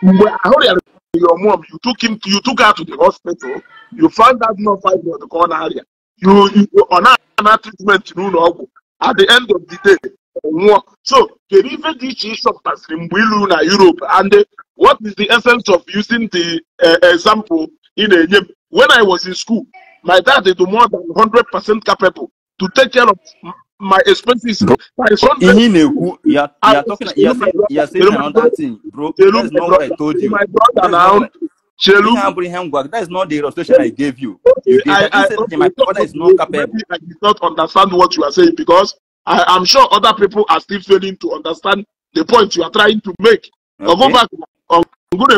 Mgbe ahụrụ ya your mom, you took him, you took her to the hospital, you found that no five on the corner area. You, you on an treatment, you know, at the end of the day. So, the river ditch is of Pasrimwilu na Europe. And what is the essence of using the uh, example in a name? When I was in school, my dad is more than 100% capable to take care of my expenses. Bro, my son in Eku, you are, you are talking, you are saying, you are thing, bro. Chelu, that's not what I told you. My brother now. Chelu. Abraham work. That is not the illustration I gave you. you gave I, I, I, my brother is not capable. I do not understand what you are saying because I am sure other people are still failing to understand the point you are trying to make. Okay. Go back. Come on,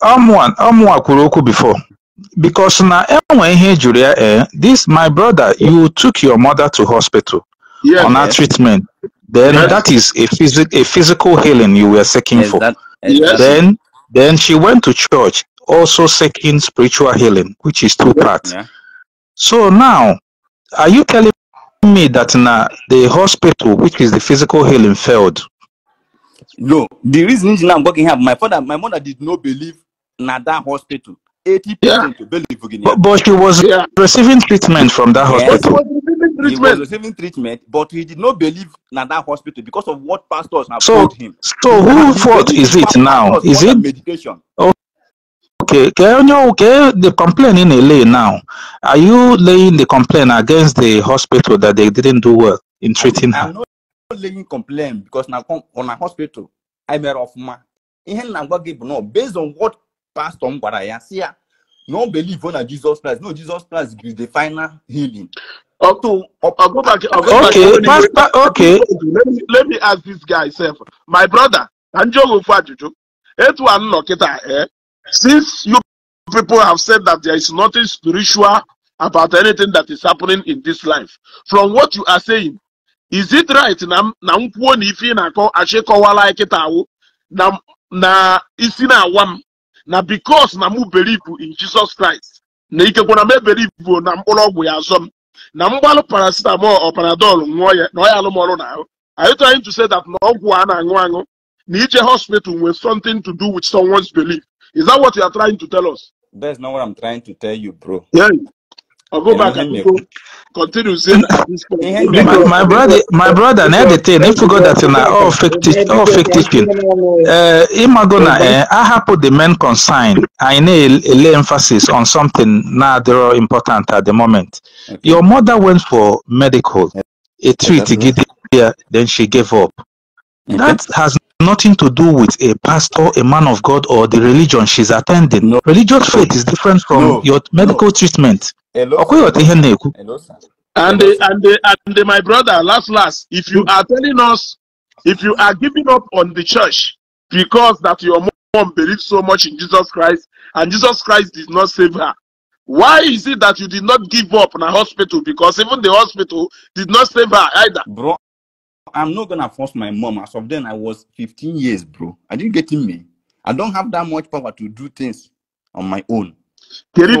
come on, come on. Kwuru okwu before. because now enwe ihe Julia, eh this my brother you took your mother to hospital yeah, on her yeah. treatment then yes. that is a, physic, a physical healing you were seeking for that, yes. then then she went to church also seeking spiritual healing which is two parts yeah. so now are you telling me that now the hospital which is the physical healing failed no the reason is now i'm working here my father my mother did not believe in that hospital 80 yeah. to Bellevue, Virginia. But, but she was yeah. Uh, receiving treatment from that hospital. Yes, he was receiving treatment, but he did not believe in that hospital because of what pastors have so, told him. So who fault is it now? Is it medication? Oh, okay, can you okay the complaint in LA now? Are you laying the complaint against the hospital that they didn't do well in treating her? I'm not laying complaint because now on a hospital, I'm a rough man. Based on what pastor m gwara ya si ya na ọ believe Jesus Christ no Jesus Christ is the final healing. Okay, okay, Let me, ask this guy self. My brother, Anjogofu Ajuju, etu anọ kịta eh? Since you people have said that there is nothing spiritual about anything that is happening in this life, from what you are saying, is it right na na nkwuo na ife na-akọ achịkọwala kịta awụ na na isi na-awa m na bikos na mụ believe in Jesus Christ na ikekwana m ebelivu na mkpụrụ ọgwụ ya azọ m na mgbalụ parasitamọl ọ panadol ya na ọ alụmọrụ na ahụ are you trying to say that na ọgwụ a na-aṅụ aṅụ na ije hospital nwe something to do with someone's belief is that what you are trying to tell us? That's not what I'm trying to tell you, bro. Yeah. I'll go back and go continue saying my, my brother my brother na editing if you go that na uh, all fake teaching all fake teaching uh imago na eh ahapụ the main concern anyị Lay emphasis on something They're all important at the moment your mother went for medical a treat gidi then she gave up that has nothing to do with a pastor, a man of God, or the religion she's attending. No. Religious faith is different from no. your medical no. treatment. Hello, Hello, And, and, and, my brother, last, last, if you are telling us, if you are giving up on the church because that your mom believed so much in Jesus Christ and Jesus Christ did not save her, why is it that you did not give up in a hospital? Because even the hospital did not save her either. Bro, I'm not gonna force my mom. As of then, I was 15 years, bro. I didn't get in me. I don't have that much power to do things on my own. Kedu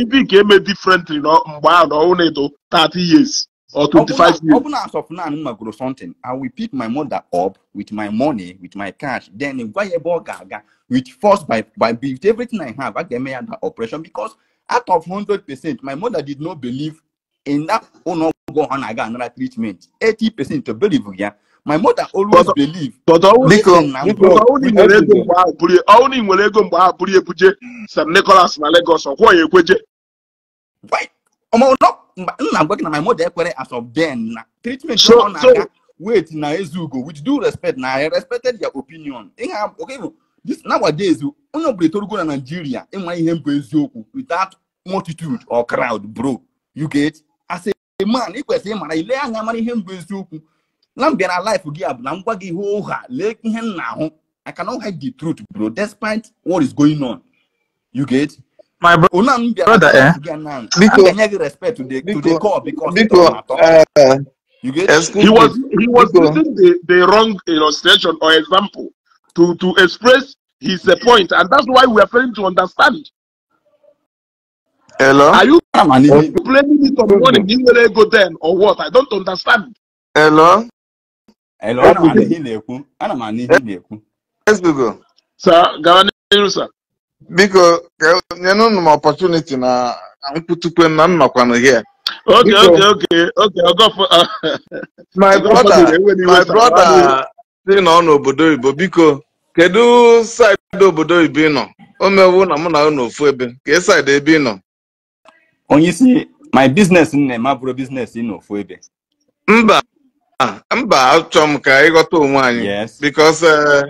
ibi nke eme differently mgbe ahụ na ọhụrụ edo 30 years or 25 years? Open as of now, m grow something. I will pick my mother up with my money, with my cash, then gwa ya ebe ọ with force by by with everything I have. I ga-eme ya that operation because out of 100%, my mother did not believe na that ọgwụ na-aga anara treatment 80 percent believe ya my mother always believe ego mgbe ahụ St. Nicholas na Lagos ọkwọ ya ekweje nna na my mother ekwere as of then na treatment ọ na-aga wait na Ezeugo with due respect na I respected their opinion this nowadays onye na Nigeria ịnwa ihe eziokwu without multitude or crowd bro you get as a man ị kwesịrị ịmara ile anya amara ihe mbụ eziokwu na m bịara life gị a bụ na m gwa gị ihe ụgha lee ihe m na-ahụ I cannot hide the truth bro despite what is going on you get my oh, brother. una m bịara to the call because eh. he was he was using the the wrong illustration or example to to express his uh, point and that's why we are failing to understand Hello? Are you, are oh. you me on You will Ego then or what? I don't understand. Hello? Hello, ana m anụ na-ekwu. Ana m anụ na-ekwu. Ezbugo. Sa, gawa n'iru Biko, nyenụ m opportunity na nkwutukwe na nnọkwanụ here. Okay, okay, okay, okay, ọgọfọ. Uh, my brother, my brother si nọ n'obodo oyibo biko kedu saịdị obodo oyibo ị nọ? O mewu na mụ na unu ofu ebe, ka e saịdị ebe ị nọ? onye isi my business nne ma bụrụ business ị n'ofu ebe mba mba achọ m ka ịghọta onwe anyị because eh,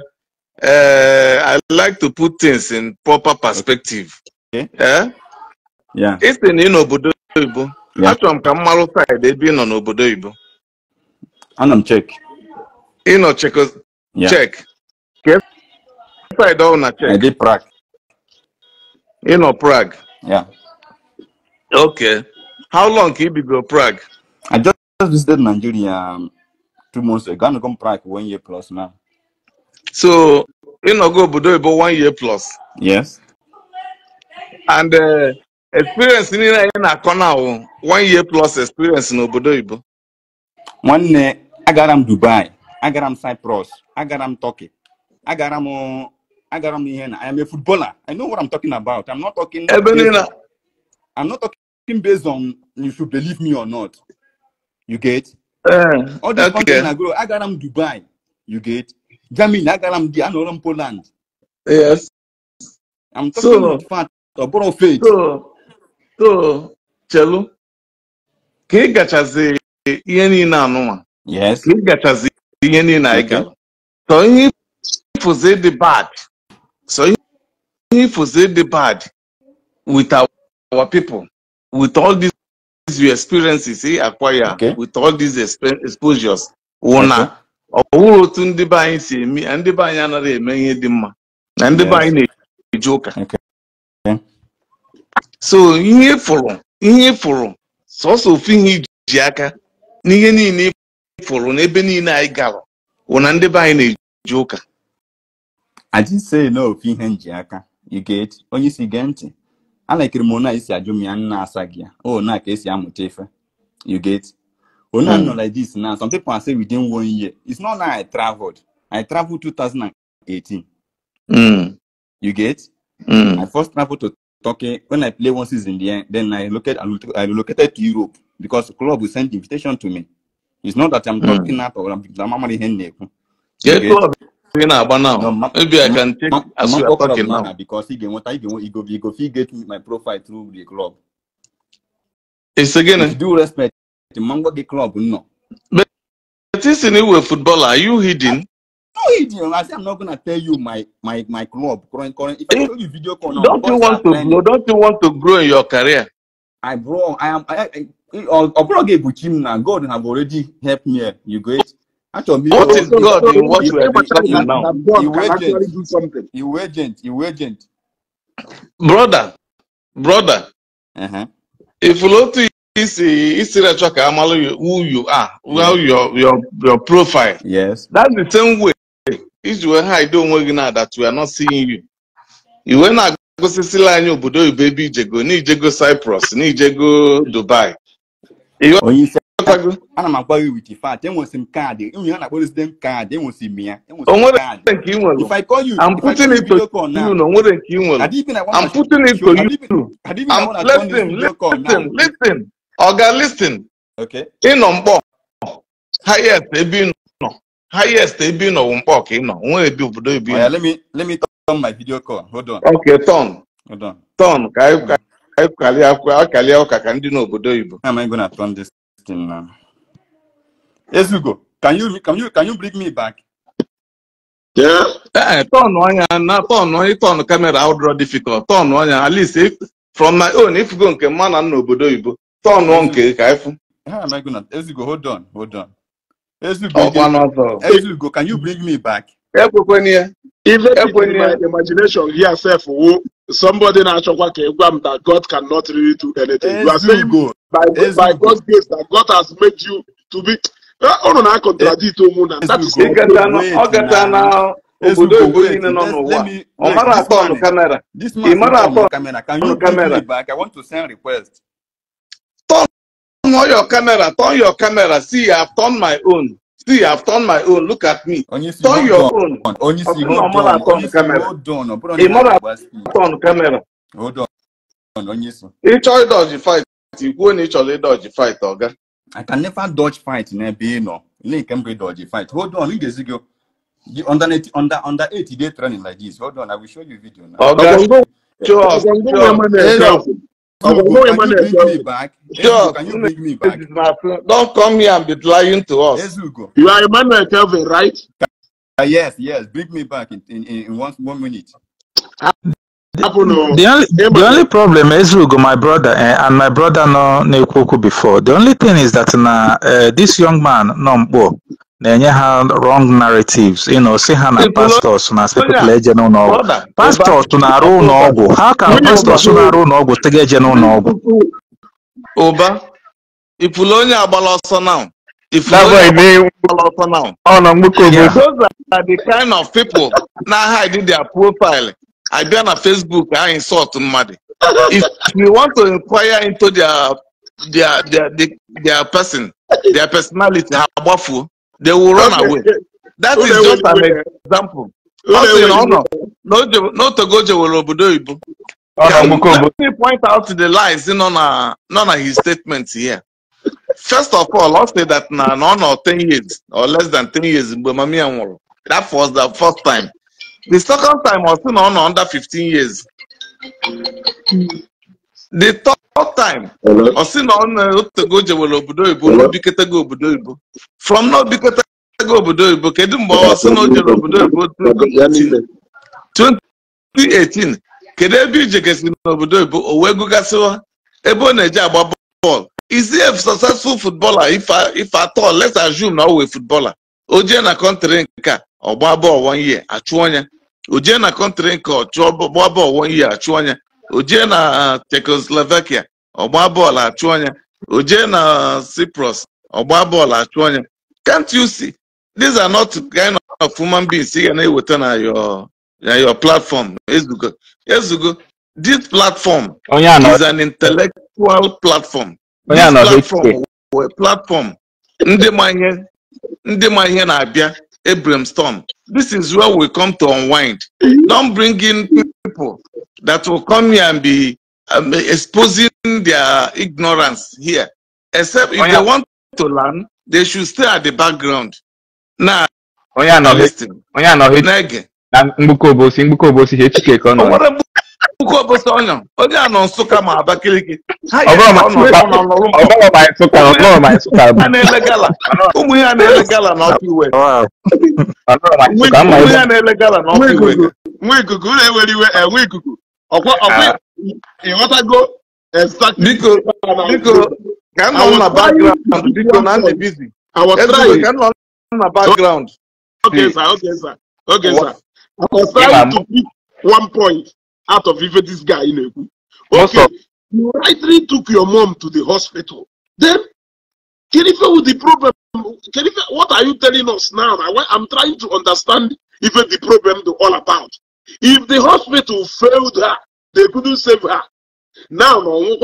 eh, I like to put things in proper perspective isi eh? na ị n'obodo oyibo achọrọ m ka m marụ side ebe ị nọ n'obodo oyibo ana m chek ị nọ chek ka side ọhụụ na check. ị nọ e Prague Okay. How long can you be go Prague? I just visited Nigeria um, two months ago. I'm going to Prague one year plus now. So, you know, go Budo about one year plus. Yes. And uh, experience in in a corner, one year plus experience in Obodo Ibo. One uh, I got him Dubai, I got him Cyprus, I got him Turkey, I got him, uh, I got him here. I am a footballer. I know what I'm talking about. I'm not talking. Ebenina. I'm not talking based on you should believe me or not. You get? Uh, All the okay. content I go, I got them Dubai. You get? Germany, I got them the Anoram Poland. Yes. I'm talking so, about fact, about faith. So, so, Chelu, ka ị gachazi ihe niile anụnwa yes ka ị gachazi ihe niile anyị ga so ihe ifuzi the bad so ihe ifuzi the bad with our, our people with all these experiences he eh, acquire with all these exposures wụ na otu ndị be anyị si eme na ndị be anyị anaghị eme ihe dị mma na ndị be anyị na-eji ụka so ihe fụrụ ihe fụrụ sọsọ ofu ihe iji aka n'ihe niile e fụrụ n'ebe niile anyị gara wụ na ndị be anyị na-eji ụka aji say na ofu ihe nji aka onye isi gee ntị I like ekiri m onye esi ajụ m ya nna asa ya o oh, you get onye mm. nọ like this now some people are saying within one year it's not that i traveled i traveled 2018 mm. you get mm. i first traveled to Turkey when i play one season there then i located i relocated to Europe because the club will send invitation to me it's not that i'm hmm. talking mm. or i'm, I'm, say na about now maybe i can take as we are talking now because he you want I you he go he go fit get my profile through the club it's again if you eh? respect the mango the club no but this anyway footballer are you hidden no hidden i say i'm not gonna tell you my my my club current current if i tell you video call now don't you want to grow don't you want to grow in your career i bro i am i i ọbụrụ ga-egbuchi m na god have already helped me eh? you great. what is God in what you are discussing now? You agent. You agent. You agent. Brother, brother, uh-huh. if Lotu is is you. who you are, well your your your profile. Yes. That's the same way. If you were high, don't work now that we are not seeing you. You were not gosisila anyị obodo oyibo baby. ijego n'ijego Cyprus n'ijego Dubai. Onye oh, isi ana m agwa gị with fact enwesi m kaadị nwunye a na-akpọ resident kaadị enwesi m ya if i call you I'm putting it to you nwere nke ị I'm putting it to you I'm ịnọ mkpọ highest ebe ị nọ highest ebe ị nọ mkpọ ka ị nọ nwere obodo ebe oh, let me let me turn my video call hold on okay turn ụka ka ndị n'obodo oyibo thing now. Ezugo, can you can you can you bring me back? Yeah. Hey, eh, turn on ya na turn on turn camera out draw difficult. Turn on ya at least if from my own if you go nke man and obodo ibo. Turn on nke ka ifu. Ah, my goodness I hold on, hold on. Ezugo, oh, Ezugo, Ezugo, can you bring me back? Even in my imagination yourself self, somebody na-achọkwa ka that God cannot really do anything. You are saying by, by God's grace that God has made you to be. Unu na-akọntradikt ụmụ na obodo oyibo niile nọ n'ụwa ọ mara atọ ọnụ kamera ị mara atọ ọnụ kamera turn your camera turn your camera see i have turned my own see i have turned my own look at me turn your own ọ mara atọ ọnụ kamera ị mara atọ ọnụ kamera ị chọọ ịdọji fight ikwuo na ị ịdọji fight ọga I can never dodge fight n'ebe ị nọ ile nke m bụ ịdọji fight hold on ị ga-ezi gị under 80, under under 80 day training like this hold on I will show you video now. ọga sure sure Can you, can you bring me back? Sure. Can you bring me back? Don't come here and be lying to us. Yes, go. You are Emmanuel Kelvin, right? Uh, yes, yes. Bring me back in, in, in one, one minute. The only, the only problem Ezeugo my brother eh, and my brother no na-ekwu okwu before the only thing is that na uh, this young man nọ mkpọ, na-enye ha wrong narratives you know, say ha na pastors na people eje n'ụlọọgwụ pastors na-arụ ọgwụ, how can pastors na-arụ ụlọọgwụ tega eje n'ụlọọgwụ ụba ifulu onye agbala ọsọ now ọ nọ mgbukọ those are the kind of people na hide their profile I abịa na facebook I insult somebody. if we want to inquire into their their their their, their person their personality ha agbafuo they will run away that is just an example No no no no. nọ n'otogo jewere obodo oyibo let me point out the lies in on a nọ na his statements here first of all ọ say that na na ọ 10 years or less than 10 years that was the first time The second time ọ sị under 15 years. The third time ọ sị na ọ obodo ibu na obiketego obodo ibu from na obiketego obodo ibu kedu mgbe ọ sị na obodo 2018 kedu ebe ije n'obodo ibu o wee ebe ọ na-eje agba bọọlụ is he a successful footballer if at all let's assume na ọ footballer o na kọntrị nke a ọgba bọọlụ one year achụọ ya ojie na kọntrị nke ọchụọ bọọlụ one year achụọ ya o jee na Czechoslovakia ọgba bọọlụ achụọ ya ojie na Cyprus ọgba bọọlụ achụọ ya can't you see these are not kind of human beings ị ga na-eweta na your na your platform ezugo ezugo this platform is an intellectual platform this platform platform ndị ma ihe ndị ma ihe na-abịa Abraham Storm. This is where we come to unwind. Don't bring in people that will come here and be um, exposing their ignorance here. Except if oh, yeah. they want to learn, they should stay at the background. Now, nah, oh, yeah, no, listen. Oh, yeah, no, Nege. Mbuko Bosi, Mbuko Bosi, HK Kono. Oke ọbụsa ọnya onye a nọ Nsụka ma Abakaliki a na-ele gala ụmụ na-ele gala ụmụ ya na-ele gala iwe nwa ikuku na-ewere iwe enwe eh, ikuku ọkwa ọkwa ah. ịghọtago biko biko ka m nọ na biko na ndị bizi ka m nọ na okay sir okay sir okay sir to pick out of even this guy in Ebu. Okay, you rightly took your mom to the hospital. Then, Kerife with the problem. Kerife, what are you telling us now? I, am trying to understand even the problem to all about. If the hospital failed her, they couldn't save her. Now, no,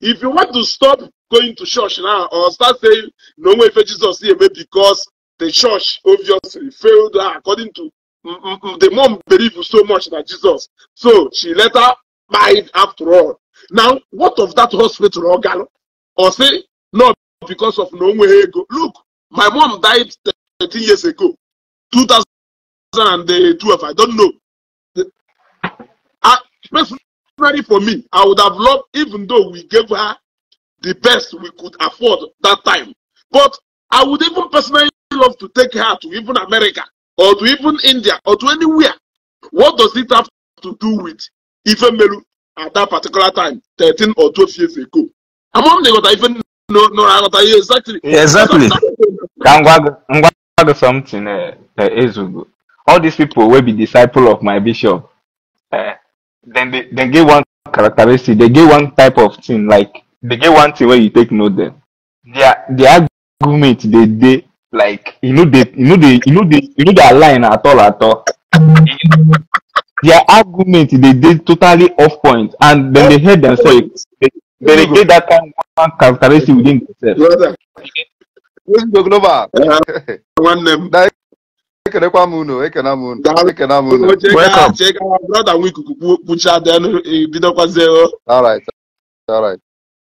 if you want to stop going to church now or start saying no way for Jesus here because the church obviously failed her according to the mom believed so much that Jesus. So she later it after all. Now, what of that hospital organ? Or say, no, because of no way Look, my mom died 13 years ago, 2012. Eh, I don't know. I, ah, personally, for me, I would have loved, even though we gave her the best we could afford that time. But I would even personally love to take her to even America or to even India or to anywhere. What does it have to do with Ifemelu at that particular time, 13 or 12 years ago? Among the other, even no, no, I got exactly. Exactly. something uh, uh, Ezugo. All these people will be disciple of my bishop. Uh, then they, they get one characteristic, they get one type of thing, like they get one thing where you take note them. Their their argument they they like e no dey e no dey e no dey e no dey align at all at all their argument dey dey totally off point and dem dey hate themselves they dey get that kind one characteristic within themselves. All right. All right.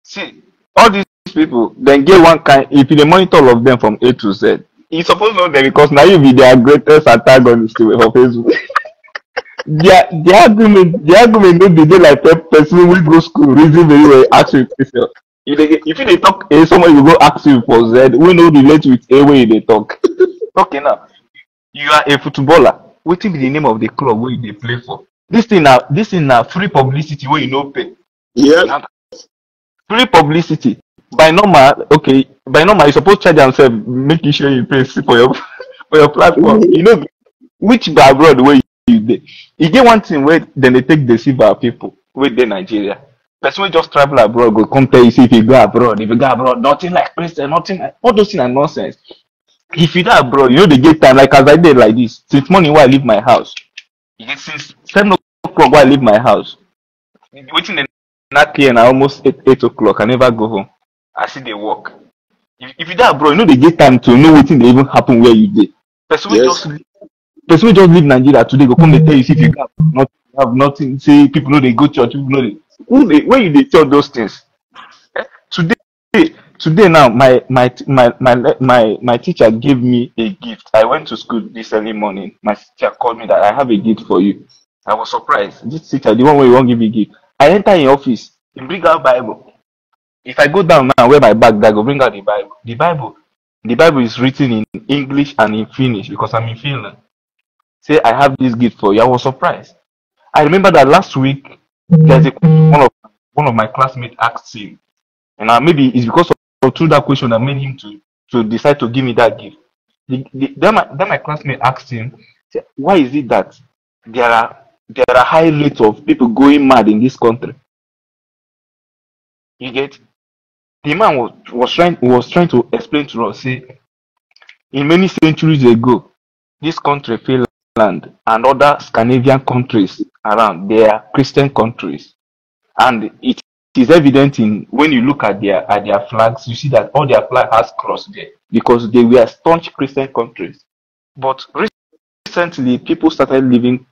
See, all these people then get one kind if you monitor all of them from A to Z. You suppose know them because now you be their greatest antagonist for Facebook. their their argument their argument no dey dey like person who go school reason very well ask you If they if you dey talk A, eh, someone will go ask you for Z wey no relate with A wey they talk. okay now, you are a footballer. What is the name of the club where you play for? This thing now this thing now free publicity where you no pay. Yeah. Free publicity by normal, okay, by normal, you supposed to charge yourself, making sure you pay for your for your platform. you know, which by abroad where you dey. you get one thing where then they take deceive our people with the Nigeria. Person just travel abroad go come tell you if you go abroad, if you go abroad, nothing like Christian, nothing like all those things are nonsense. If you go abroad, you know they get time like as I did like this. Since morning when I leave my house, since seven o'clock when I leave my house. Waiting in that clear and I almost eight, eight o'clock. I never go home as see they work if, if you die abroad you know they get time to know wetin that even happen where you did. person wey just person just leave nigeria today go come dey tell you say if you gap nothing have nothing say people know they go church people know they. who they? when you they tell those things eh, today today now my my my my my my teacher gave me a gift i went to school this early morning my teacher called me that i have a gift for you i was surprised this teacher the one won't give me gift i enter in office he bring out bible if I go down now where my bag that go bring out the Bible. The Bible, the Bible is written in English and in Finnish because I'm in Finland. Say I have this gift for you. I was surprised. I remember that last week there's a one of one of my classmates asked him, and uh, maybe it's because of, of through that question that made him to to decide to give me that gift. The, the, then, my, then my classmate asked him, why is it that there are there are high rates of people going mad in this country? You get the man was, was trying was trying to explain to us say in many centuries ago this country finland and other scandinavian countries around they are christian countries and it is evident in when you look at their at their flags you see that all their flag has cross there because they were staunch christian countries but recently people started living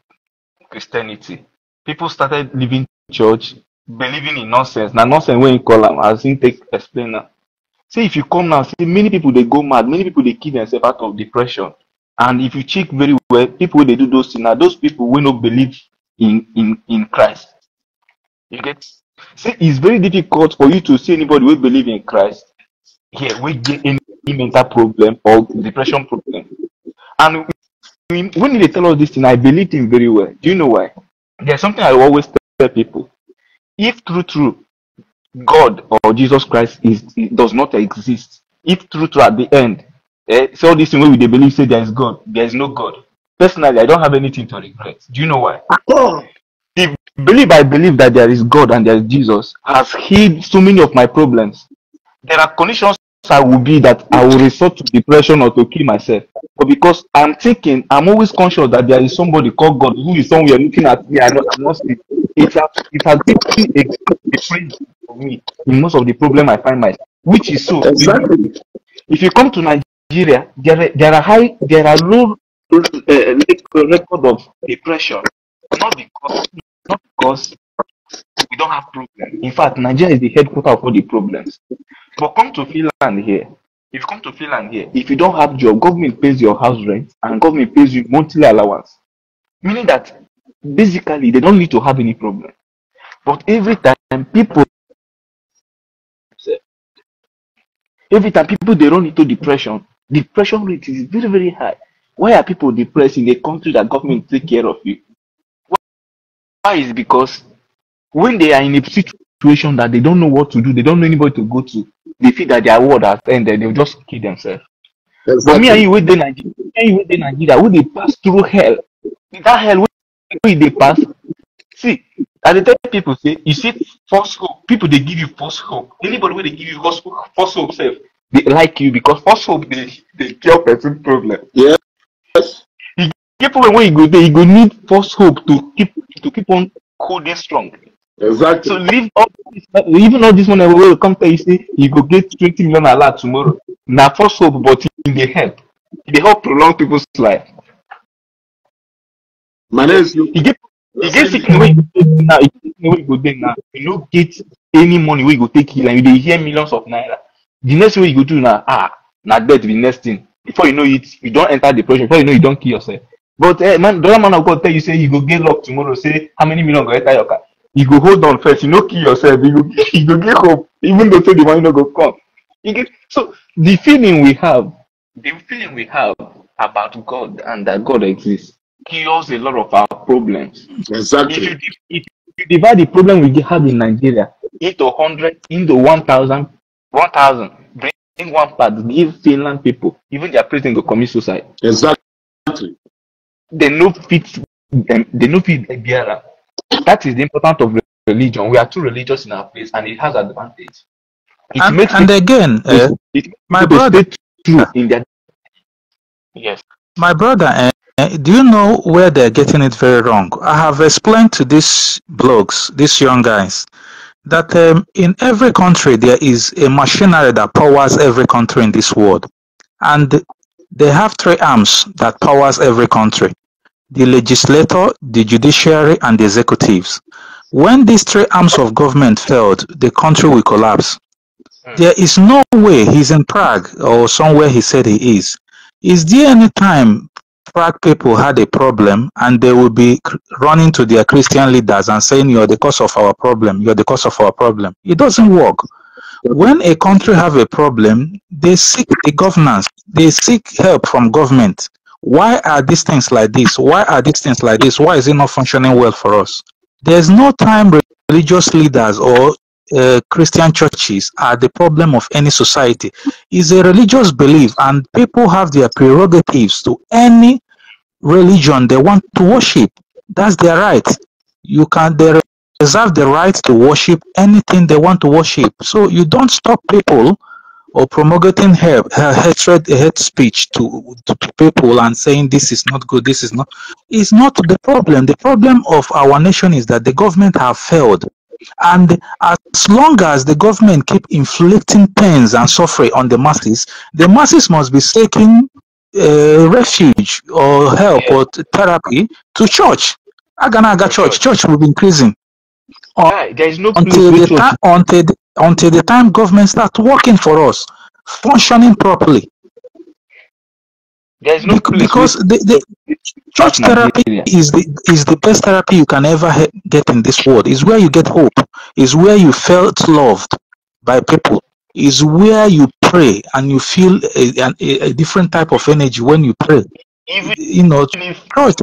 christianity people started living church believing in nonsense Now nonsense When you call them, as think take explain now. say if you come now see many people they go mad many people they kill themselves out of depression and if you check very well people they do those things Now those people will not believe in in in christ you get see. it's very difficult for you to see anybody who believe in christ here We get any mental problem or depression problem and when they tell us this thing i believe him very well do you know why there's something i always tell people if true true god or jesus christ is does not exist if true true at the end eh, so this thing we believe say there is god there is no god personally i don't have anything to regret do you know why the belief i believe that there is god and there is jesus has healed so many of my problems there are conditions I will be that I will resort to depression or to kill myself. But because I'm thinking, I'm always conscious that there is somebody called God who is somewhere looking at me. I know I'm not lost. It has, it has been a difference for me in most of the problem I find myself, which is so. Exactly. If you come to Nigeria, there are, there are high, there are low uh, record of depression, not because, not because we don't have problems. In fact, Nigeria is the headquarter of all the problems. But come to Finland here. If you come to Finland here, if you don't have job, government pays your house rent and government pays you monthly allowance. Meaning that basically they don't need to have any problem. But every time people every time people they run into depression, depression rate is very, very high. Why are people depressed in a country that government take care of you? Why is because when they are in a situation that they don't know what to do, they don't know anybody to go to, they feel that their world has ended, they'll just kill themselves. Exactly. But me and you with the Nigeria, me and you with the Nigeria, we they pass through hell. That hell we they pass. See, at the time people say, you see false hope. People they give you false hope. Anybody when they give you false hope, false hope self, they like you because false hope they they cure person problem. Yes. You get problem when you go there, you go need false hope to keep to keep on holding strong. Exactly. So leave all this, even all this money wey come tell you say you go get twenty million naira tomorrow. Na false hope, but in the help. They e help prolong people's life. My name is you. You get you get sick go dey now. You get sick now. You no get any money where you go take heal and you hear millions of naira. The next way you go do now, ah na death be the next thing. Before you know it, you don't enter depression. Before you know you don't kill yourself. But eh, man, the other man of God tell you say you go get luck tomorrow. Say how many million go enter your car? you go hold on first. You know, kill yourself. You go, you go get hope, even though say the money no go come. You get so the feeling we have, the feeling we have about God and that God exists cures a lot of our problems. Exactly. If you, if you divide the problem we have in Nigeria into hundred, into one thousand, one thousand, bring one part, give Finland people, even their president go commit suicide. Exactly. They no fit, um, they no fit bear that is the importance of religion. We are too religious in our place, and it has advantage. It and, makes and eh, it, again, uh, it, it my brother, true in their yes. My brother, uh, do you know where they're getting it very wrong? I have explained to these blogs, these young guys, that um, in every country there is a machinery that powers every country in this world, and they have three arms that powers every country the legislature, the judiciary, and the executives. When these three arms of government failed, the country will collapse. Hmm. There is no way he's in Prague or somewhere he said he is. Is there any time Prague people had a problem and they will be running to their Christian leaders and saying, You're the cause of our problem, you're the cause of our problem? It doesn't work. When a country have a problem, they seek the governance, they seek help from government why are these things like this? Why are these things like this? Why is it not functioning well for us? There's no time religious leaders or uh, Christian churches are the problem of any society. It's a religious belief, and people have their prerogatives to any religion they want to worship. That's their right. You can they reserve the right to worship anything they want to worship. So you don't stop people or promulgating her, hatred, hate speech to, to, to people and saying this is not good, this is not, is not the problem. The problem of our nation is that the government have failed. And as long as the government keep inflicting pains and suffering on the masses, the masses must be seeking uh, refuge or help or therapy to church. Aganaga church, church will be increasing. there is no until the, ta- until the until the time government starts working for us, functioning properly. There is no Be- because the, the church therapy is the is the best therapy you can ever he- get in this world. Is where you get hope. Is where you felt loved by people. Is where you pray and you feel a, a, a different type of energy when you pray. Even you know, church